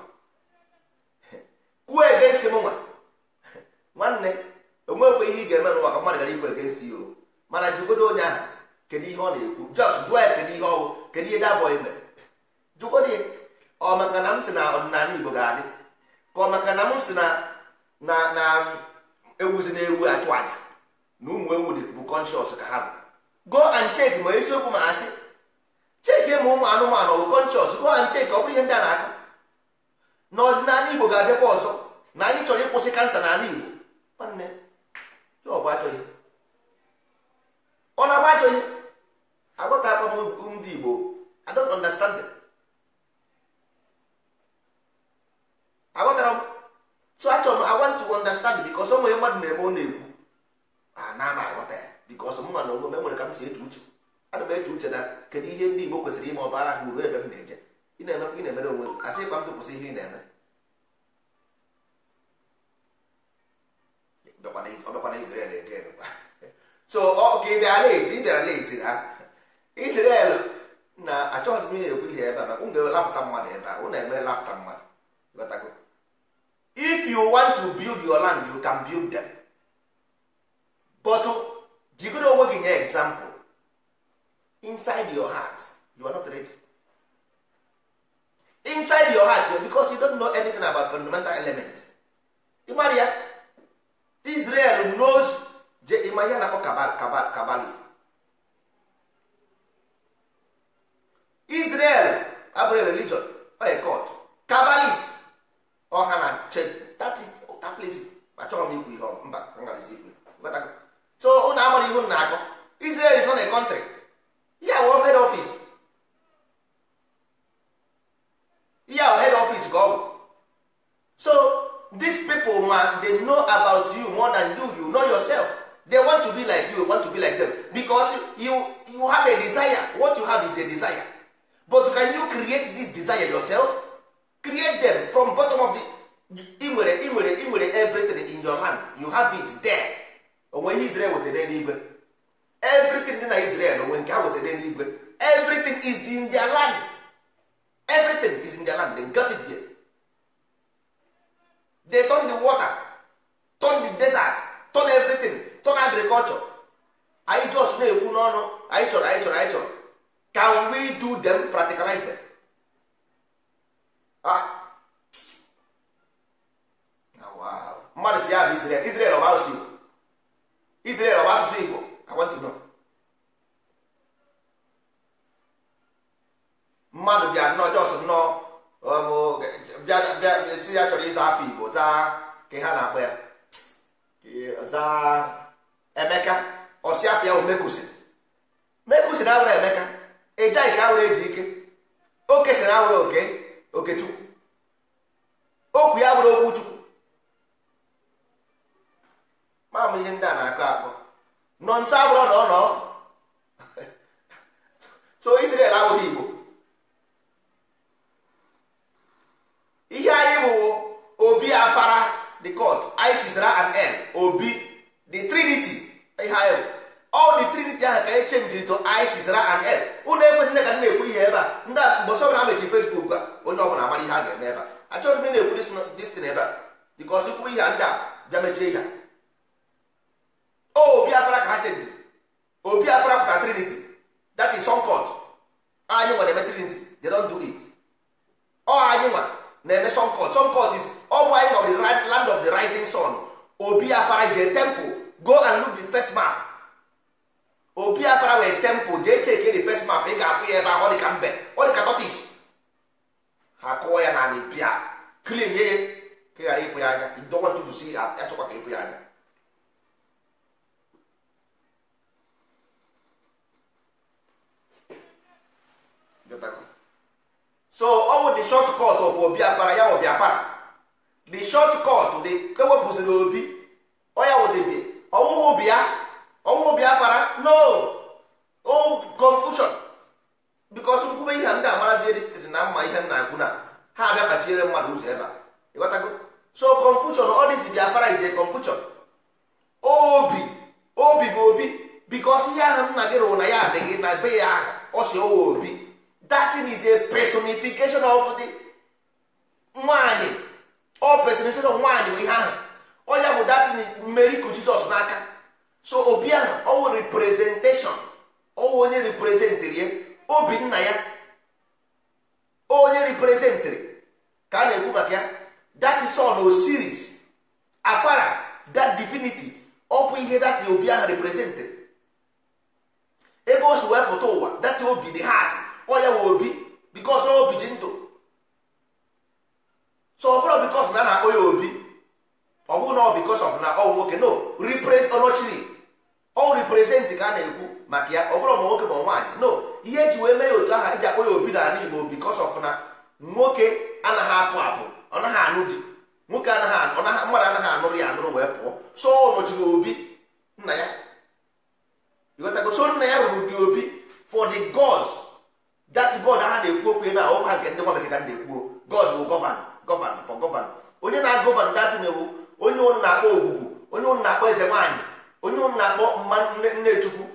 kwuo egenst mụnwa nwanne onwekwe ihe ị ga-eme n'ụwa ka mmadụ gara ikwu egenst ya mana jigodo onye ahụ kedu ihe ọ na-ekwu jọs jụọ ya kedu ihe ọwụ kedu ihe dabọghị mere jụkwa dị ọ na m si na ọdịnala igbo ga-adị ka ọ na m si na na na ewuzi na ewu achụ aja na ụmụ ewu dị bụ kọnshọs ka ha bụ go and check ma eziokwu ma asị cheki ma ụmụ anụmanụ bụ kọnshọs go and check ọ bụrụ ihe ndị a na aka na ọdịnala igbo ga-adịkwa ọzọ na anyị chọrọ ịkwụsị kansa n'ala igbo nwanne ọ ọ na-agba achọghị aghọtakwa m ndị igbo i don't understand them. aghọtara m so achọ m i want to understand because ọ nwere mmadụ na-eme ọ na-ekwu na ama aghọta ya because mma na onwe m enwere ka m si eche uche ana m eche uche na kedu ihe ndị igbo kwesịrị ime ọbara ha ruo ebe m na-eje ị na-emekwa ị na-emere onwe m asị ịkwa m kwụsị ihe ị na-eme ọbakwana Israel ege so ọ ka ị bịara leti ị bịara leti ha Israel na achọghịzi m ihe ekwu ihe ebe a maka ụmụ lapụta mmadụ ebe a ụnụ eme lapụta mmadụ ghọtago if you want to build your land you can build them but jigoro onwe gị nye example inside your heart you are not ready inside your heart because you don't know anything about fundamental element ịmara ya Israel knows je ịma ihe na-akpọ kabal kabal kabalist Israel abụrụ religion oye court kabbalist ọha na that is that place ma chọrọ m ikwu ihe mba ngazi ikwe so ụnụ amara ihu na akọ Israel is not a country ya our head office ya head office ka ọ bụ so dis people ma they know about you more than you you know yourself they want to be like you want to be like them because you you have a desire what you have is a desire but can you create this desire yourself create them from bottom of the ị nwere ị nwere everything in your hand you have it there onwe ihe Israel wetara n'igwe everything dị na Israel onwe nke ha wetara n'igwe everything is in their land everything is in their land they got it there they turn the water turn the desert turn everything turn agriculture anyị just na-ekwu n'ọnụ anyị chọrọ anyị chọrọ anyị chọrọ can we do them practicalize them ah. mmadụ ah, um, oh, si ya bụ asụsụ Igbo I mmadụ bịa nnọọ nnọọ si ya chọrọ afọ Igbo zaa ka ha na-akpọ ya zaa Emeka afọ ya bụ Mekusi Mekusi na Emeka a awụrụ eji ike o sị a awụrụ oke okechukwu okwu ya bụrụ okwu chukwu maamụ ihe ndị a na-akọ akọ nọ nso abụrụ na ọ so Israel awụrụ Igbo ihe anyị bụ obi afara the court isis ra and n obi the trinity ihe anyị bụ all the trinity ahụ ka e chenjiri to isis ra and l ụnụ ekwesịrị ka na-ekwu ihe ebe a ndị a mgbe ọbụla amechi facebook a onye ọbụla amara ihe a ga-eme ebe a achọghị m na-ekwu destin ebe a because ikwu ihe a ndị a bịa mechie ihe obi afara ka ha chenji obi afara pụta trinity that is some court anyị nwa na-eme trinity they don't do it ọ anyị nwa na-eme some court some court is ọmụ anyị nọ the land of the rising sun obi afara is a temple go and look the first map opi afara wee temple jee cheke the first map ị ga-afụ ya ebe ahụ ọdịka mbe ọdịka tortoise ha kụọ ya na anị pịa klin ye ka ghara ịfụ ya anya idọwa ntutu si ya chọkwa ka ịfụ ya anya so ọ bụ the short cut of obi afara ya obi afara the short cut dị ewepụsịrị obi ọ ya wụzi bi ọwụghị obi ya ọnwụ biafra no o confusion bikos nkwube ihe ndị amarazi sitere na mma ihe nna agwụ na ha abịa kpachiere mmadụ ụzọ ebe a ịghọtago so confusion ọ dịzi biafra ize confusion obi obi bụ obi bikos ihe ahụ nna gị rụrụ na ya adịghị na be ya aha ọ owe obi datin is a personification of the nwaanyị ọ personification of nwaanyị bụ ihe ahụ ọ ya bụ datin mmeri ku jizọs n'aka so obi ahụ ọwụ reprezenteshọn ọwụ onye reprezentịrị ya obi nna ya onye reprezentịrị ka a na-ekwu maka ya that is all o series afara that divinity ọ bụ ihe dati obi ahụ reprezentịrị ebe o si wee pụta ụwa dati obi the heart ọ ya wụ obi because obi ji ndụ so ọ bụrụ because na a na-akpọ ya obi ọ bụrụ na ọ because of na ọ nwoke no repress ọnọchiri ọ represent ka a na-ekwu maka ya ọ bụrụ ma nwoke ma nwaanyị no ihe eji wee mee ya otu aha iji akpọ ya obi n'ala Igbo because of na nwoke anaghị apụ apụ ọ naghị anụ di nwoke anaghị mmadụ anaghị anụrụ ya anụrụ wee pụọ so ọ nọchiri obi nna ya ịghọtago so nna ya rụrụ dị obi for the gods that god aha na-ekwu okwu na ha nke ndị nwa bekee ka na-ekwu nne chukwu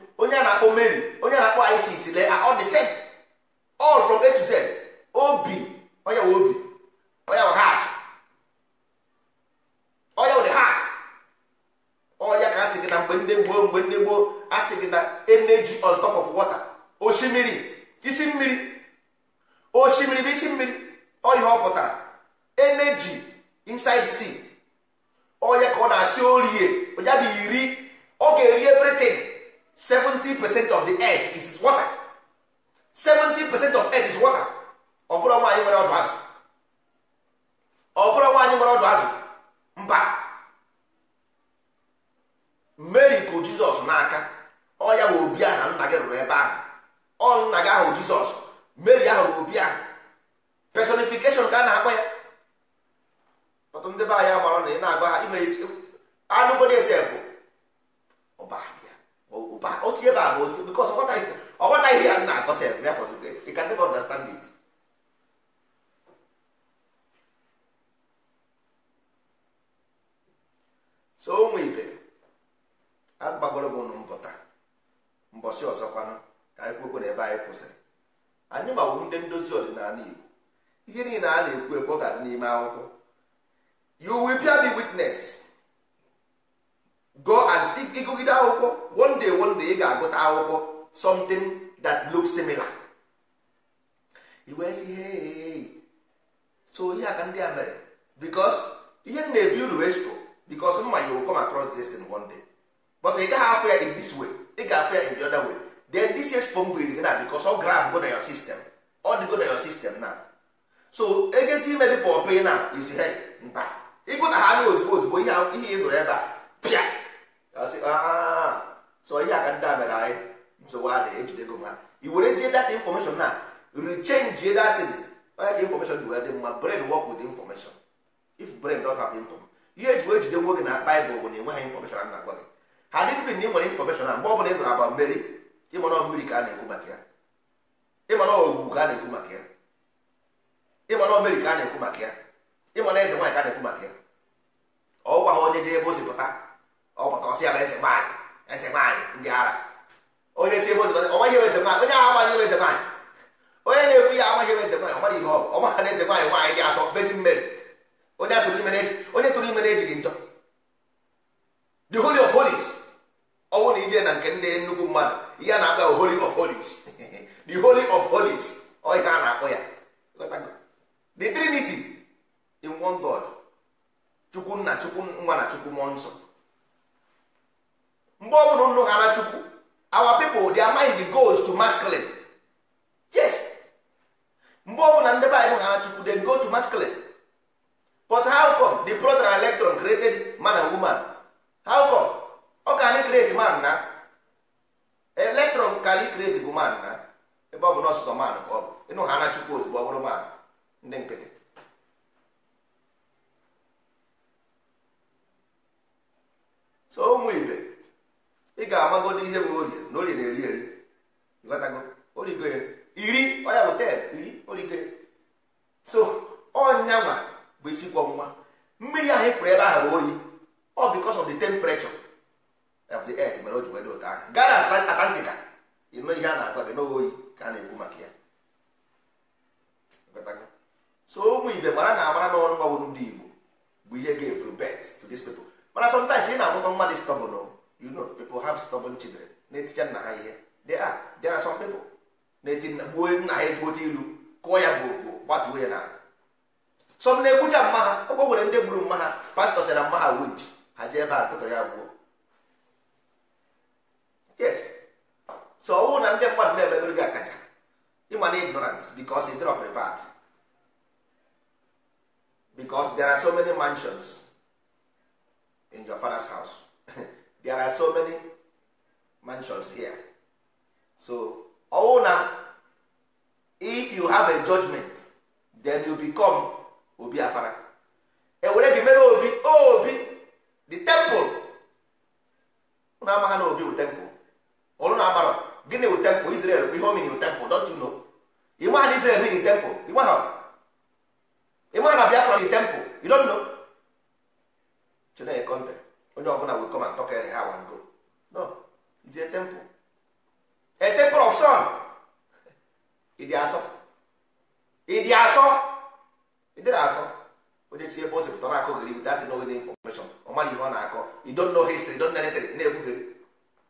ije na nke ndị nnukwu mmadụ ihe a na-akpọ holy of holies the holy of holies ọhịa a na-akpọ ya the trinity in one god chukwu nna chukwu nwa na chukwu mmụọ nsọ mgbe ọ bụla nnụ ghara chukwu our people they are mind goals to masculine yes mgbe ọ bụla ndị be anyị chukwu they go to masculine but how come the proton electron created man and woman how come ọ ka anyị create man na eletron ka anyị create bụ man na ebe ọ bụ nọsụsọ man ka ọ bụ ịnụ ha na chukwu ozugbo ọ bụrụ man ndị nkịtị so ụmụ ibe ị ga-amagodo ihe bụ orie na orie na-eri eri ịghọtago origo ya iri ọya bụ ten iri origo ya so ọnyanwa bụ isi kwọ nwa mmiri ahụ ifuru e ebe ahụ bụ oyi ọ because of the temperature of the earth mere o ji wee dị ahụ gara na ịnụ ihe a na-agwa gị n'oyi ka a na-ekwu maka ya so ụmụ ibe mara na amara n'ọrụ ndị igbo bụ ihe ga-eburu bet to mana ị na-amụta mmadụ stubborn oh. you know people have stubborn children they are there are some people na-eti gbuo nna ilu kụọ ya gbuogbuo gbatuo ya n'ala na-egbucha mma ha ọgwọ nwere ndị gburu mma ha pastọ na mma ha winch ha jee ebe a ya gbuo yes so ọ na ndị mmadụ na-emegoro gị akaja ịma na ignorance because prepared because there are so many mansions in your father's house there are so many mansions here so ọ na if you have a judgment then you become obi afara ewere gị mere obi obi the temple ụna ama na obi bụ temple ọrụ na agbara gịnị wụ tempụ Israel bụ ihe o mini tempụ don't ịmaa na Israel mini tempụ ịmaa na Biafra mini tempụ you know Chineke kọnte onye ọbụla will come and talk any how no it's a temple of ịdị asọ ịdị asọ ịdịrị asọ onye pụtara akụ gịrị ọ na-akọ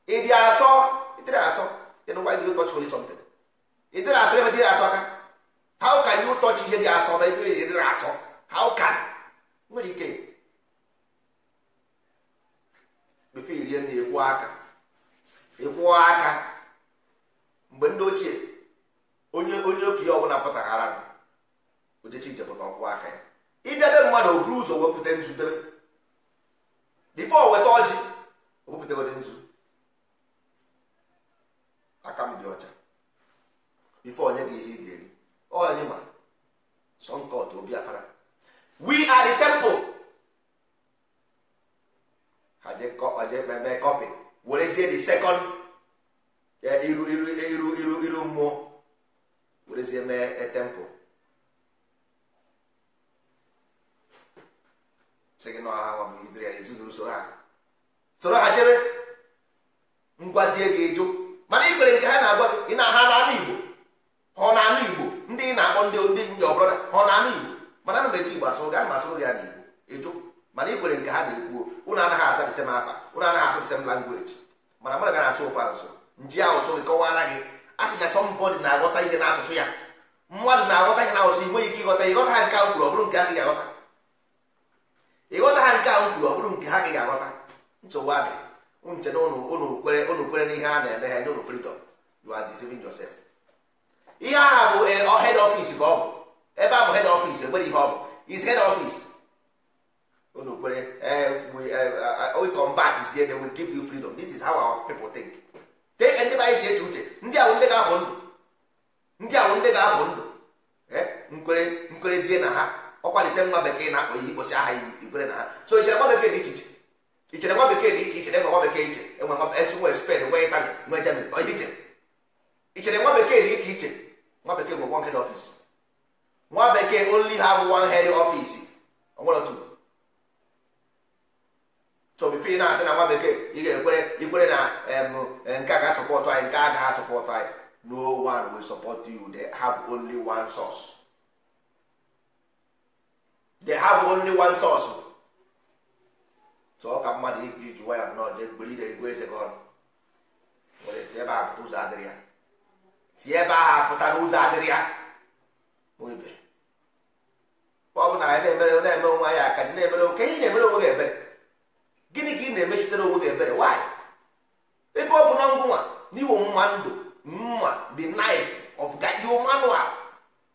ịdị asọ ịdịrị asọ then why do you touch holy something ịdịrị asọ ebe dịrị asọ aka how ka you ụtọchi ihe dị asọ ma ebe ịdịrị asọ how can nwere ike befe irie na ekwu aka ekwu aka mgbe ndị ochie onye onye okenye ọbụla pụtaghara ojechi ije pụta ọkwụ aka ya idebe mmadụ o buru ụzọ wepụta nzudebe bifo weta ọjị Señor ha nke a kwere na ha so ichere nwa bekee dị iche iche ichere nwa bekee dị iche iche na nwa bekee iche enwe nwa nwe spen nwe itali nwe germany iche ichere nwa bekee dị iche iche nwa bekee nwe one head office nwa bekee onli have one head office onwere two so bifo ị na-asị na nwa bekee ị ga-ekwere ikwere na nke a ga-asọpọtụ anyị nke a ga-asọpọtụ anyị no one will support you they have only one source they have only one source so ọ ka mmadụ ibiri ji waya nnọọ jee gbere na ego eze gị ọnụ nwere ti ebe ahụ pụta ụzọ adịrị ya si ebe ahụ apụta n'ụzọ adịrị ya ibe ọ bụ na anyị na-emere na-eme onwe anyị aka dị na-emere oke ị na-emere onwe gị ebere gịnị ka ị na-emechitere onwe gị ebere nwaanyị ebe ọ bụ na ngwụnwa n'iwo mma ndụ mma the knife of the manual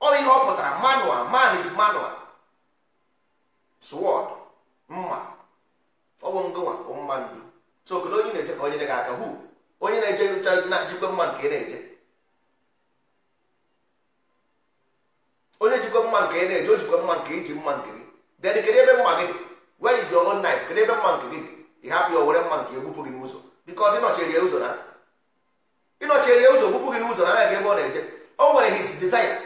ọ ihe ọ pụtara manual man is manual sword mma ọ bụ ngụnwa bụ mma ndu so kedu onye na-eje ka onye gị aka hu onye na-eje na-ejikwa mma nke ị na-eje onye jikwa mma nke ị na-eje o jikwa mma nke iji mma nke gị then kedu ebe mma gị dị where is your own knife kedu ebe mma nke gị dị ị hapụ ya were mma nke egbupụ gị n'ụzọ because ịnọchiri ya ụzọ na ịnọchiri ya ụzọ gbupụ gị n'ụzọ na anaghị ebe ọ na-eje o nwere his desire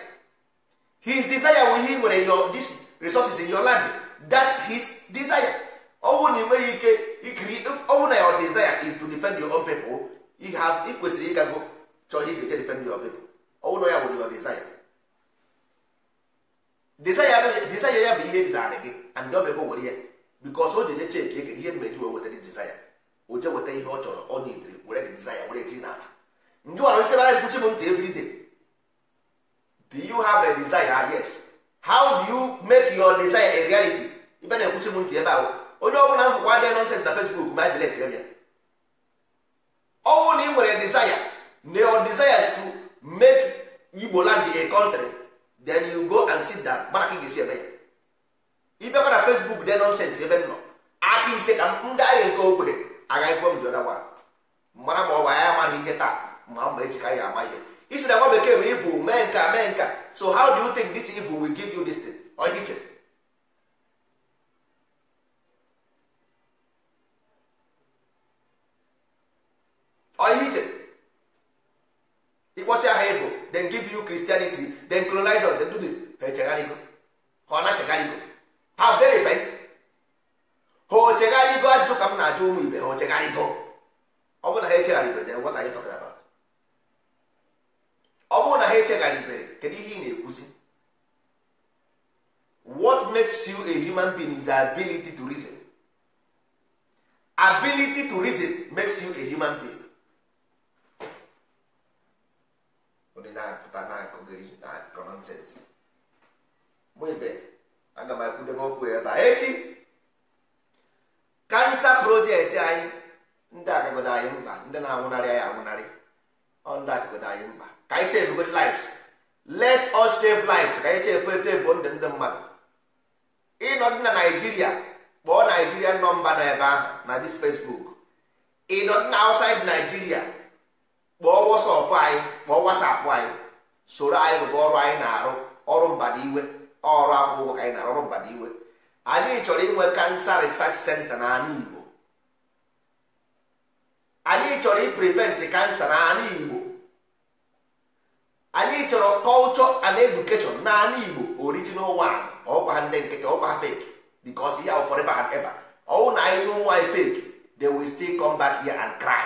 his desire wụ ihe nwere your this resources in your land that his desire ọnwụ na enweghị ike ikiri ọnwụ na your desire is to defend your own people you have ikwesịrị ịgago chọọ ihe ga-eje defend your people ọnwụ na ya bụ your desire desire ya bụ ihe dị narị gị and dobego were ya bikos o jeje cheki ekere ihe mgbeji wee wetara desire o je weta ihe ọ chọrọ ọ nidiri were dị desire were etinye n'akpa ndị ọrụ isi bara mkpuchi m ntị everyday do you have a desire yes how do you make your desire a reality ibe na-ekwuchi m ntị ebe ahụ onye ọ bụla mbụkwa adịghị nọnsens na fesbuk ma jilet e ya ọ bụrụ na ị nwere desire na your desire is to make Igbo land a country then you go and sit down mana ka ị ga-esi ebe ya ibekwa na fesbuk dị nọnsens ebe m nọ aka ise ka m gaghị nke ogbenye agaghị kwuo m dị ọda gwara mara ma ọ bụ anyị amaghị ihe taa ma mba echi ka anyị ama ihe isi na nwa bekee bụ ivu mee nka mee nka so how do you think this evil will give you this thing? ọ iche ịkpọsị aha evo then give you Christianity then colonize us the do this ha echegharịgo ha ọ na-echegharịgo ha very repent ha o chegharịgo ajụ ka m na-ajụ ụmụ ibe ha o chegharịgo ọ bụrụ na ha echegharịgo then what are you talking about ọ bụrụ na ha echegharịbere kedu ihe ị na-ekwuzi what makes you a human being is ability to reason ability to reason makes you a human being ndị na-apụta na-akụghị akụkọ nọnsens mụ ibe aga m akwụdebe okwu ebe a echi kansa projekti anyị ndị agagodo anyị mkpa ndị na-anwụnarị anyị anwụnarị ọ ndị agagodo anyị mkpa ka anyị save good lives let us save lives ka anyị chefu esefu ndụ ndị mmadụ ịnọ dị na naijiria kpọọ naijiria nọmba na ebe ahụ na dis facebook ịnọ dị na outside naijiria kpọọ wọsọpụ anyị ka ọ wasapụ anyị soro anyị rụba ọrụ anyị na-arụ ọrụ mbadiwe ọrụ akwụkwọ ka anyị na-arụ ọrụ mbadiwe anyị chọrọ inwe kansa resach senta n'ala Igbo anyị chọrọ iprevent kansa n'ala Igbo anyị chọrọ culture and edukeshọn n'ala Igbo original one ọgwa ha ndị nkịtị ọkwa ha fake ya forever and ever ọwụ na anyị n'ụmụ anyị fake they will still come back here and cry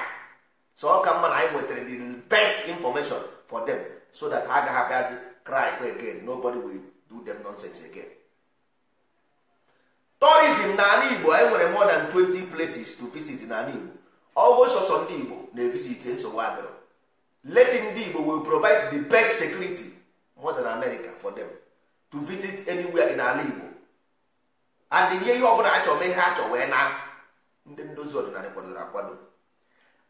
so ọ ka mma na anyị nwetara the best information for them so that ha agaghị abịazi cry again nobody will do them nonsense again tourism n'ala igbo anyị nwere more than 20 places to visit n'ala igbo ọgwụ sọsọ ndị igbo na-evisit nsogbu adịrọ leti ndị igbo will provide the best security more than america for them to visit anywhere in ala igbo and nye ihe bụla achọ mee ihe achọ wee na ndị ndozi ọdịnala kwadoro akwado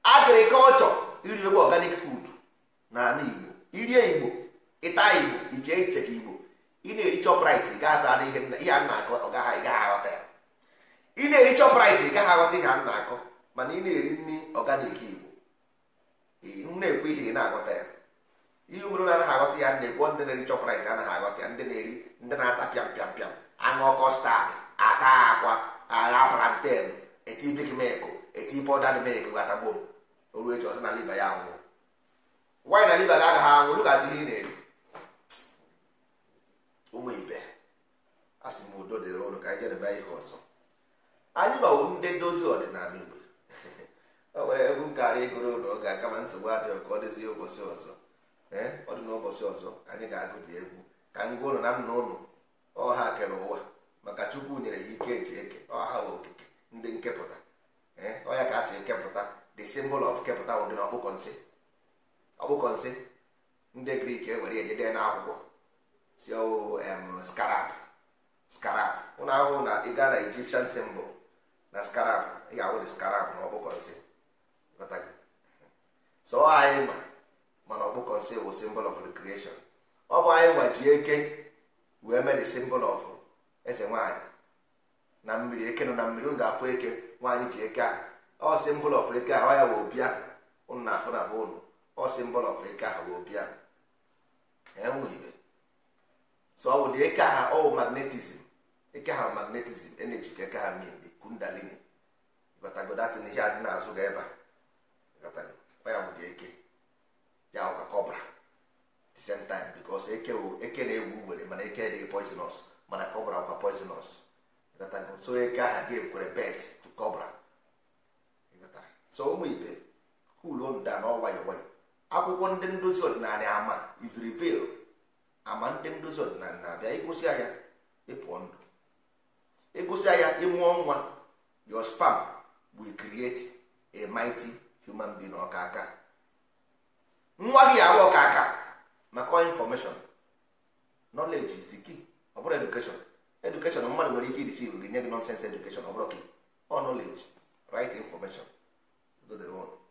agrikọlchọ iriekwa organic food na ala igbo irie igbo ịta igbo iche iche ka igbo ị na-eri chọpụrit ị gaghị ata ihe a na-akọ ọ gaghị ịgaghị aghọta ya ị na-eri chọpụrit ị gaghị aghọta ihe a na-akọ mana ị na-eri nri ọganik igbo m na-ekwe ihe ị na-aghọta ya ihe obodo na-anaghị aghọta ya na-ekwo ndị na-eri chọpụrit anaghị aghọta ya ndị na-eri ndị na-ata pịam pịam pịam aṅụ kọstad ata akwa ara planten eti big milk eti pọdad milk gatagbom oru echi ọsị na liba ya anwụ nwaanyị na liba ga-agaghị anwụ lu ga-adịghị ị na-eri ụmụ ibe a sị m udo dịrị ụlọ ka anyị jedebe ihe ọzọ anyị gbawo ndị dozi ọdịnala igbo o nwere egwu nkarị ịgụrụ ụlọ oge akama nsogbu adịghị ka ọ dịzi ụbọchị ọzọ ọ dị n'ụbọchị ọzọ anyị ga-agụ dị egwu ka ngwa ụlọ na nna ụlọ ọha kere ụwa maka chukwu nyere ya ike eji eke ọha okike ndị nkepụta ọya ka a si ekepụta the symbol of kepụta wodị na ọkpụkọ nsị ọkpụkọ nsị ndị grik ewere ejede na akwụkwọ si ọwụ oh, skarab skarab ụlọ ahụhụ na ịga na Egyptian symbol na skarab ị ga-ahụ dị skarab na ọkpụkọ nsị so anyị ma mana ọkpụkọ nsị bụ symbol of the creation ọ bụ anyị ma ji eke wee mee the symbol of eze nwaanyị na mmiri eke nọ na mmiri m ga-afụ eke nwaanyị ji eke ahụ ọ of eke ahụ ya wee ahụ ụnụ na afụ na be ụnụ ọ of eke ahụ wee ahụ enweghịbe so ọ bụ dị energy ka ha min kundalini ihe adị n'azụ ga ebe a ya bụ eke ya kọbra the same time na ewu ugbere mana eke dị poisonous mana kọbra poisonous so eke ahụ ga-ekwere bet to so ụmụ ibe kulonda na ọwayọ nwayọ akwụkwọ ndị ndozi ọdịnala ama is ama ndị ndozi ọdịnala na-abịa ịgụsịa ya ịpụọ ndụ ịgụsịa ya ịmụọ nwa your spam we create a human being ọka aka nwa gị ahụ ọka aka maka infọmeshọn nọleji is the key ọ bụrụ education mmadụ nwere ike irisi gị nye gị nonsense education ọ bụrụ gị ọ nọleji right infọmeshọn. Vedremo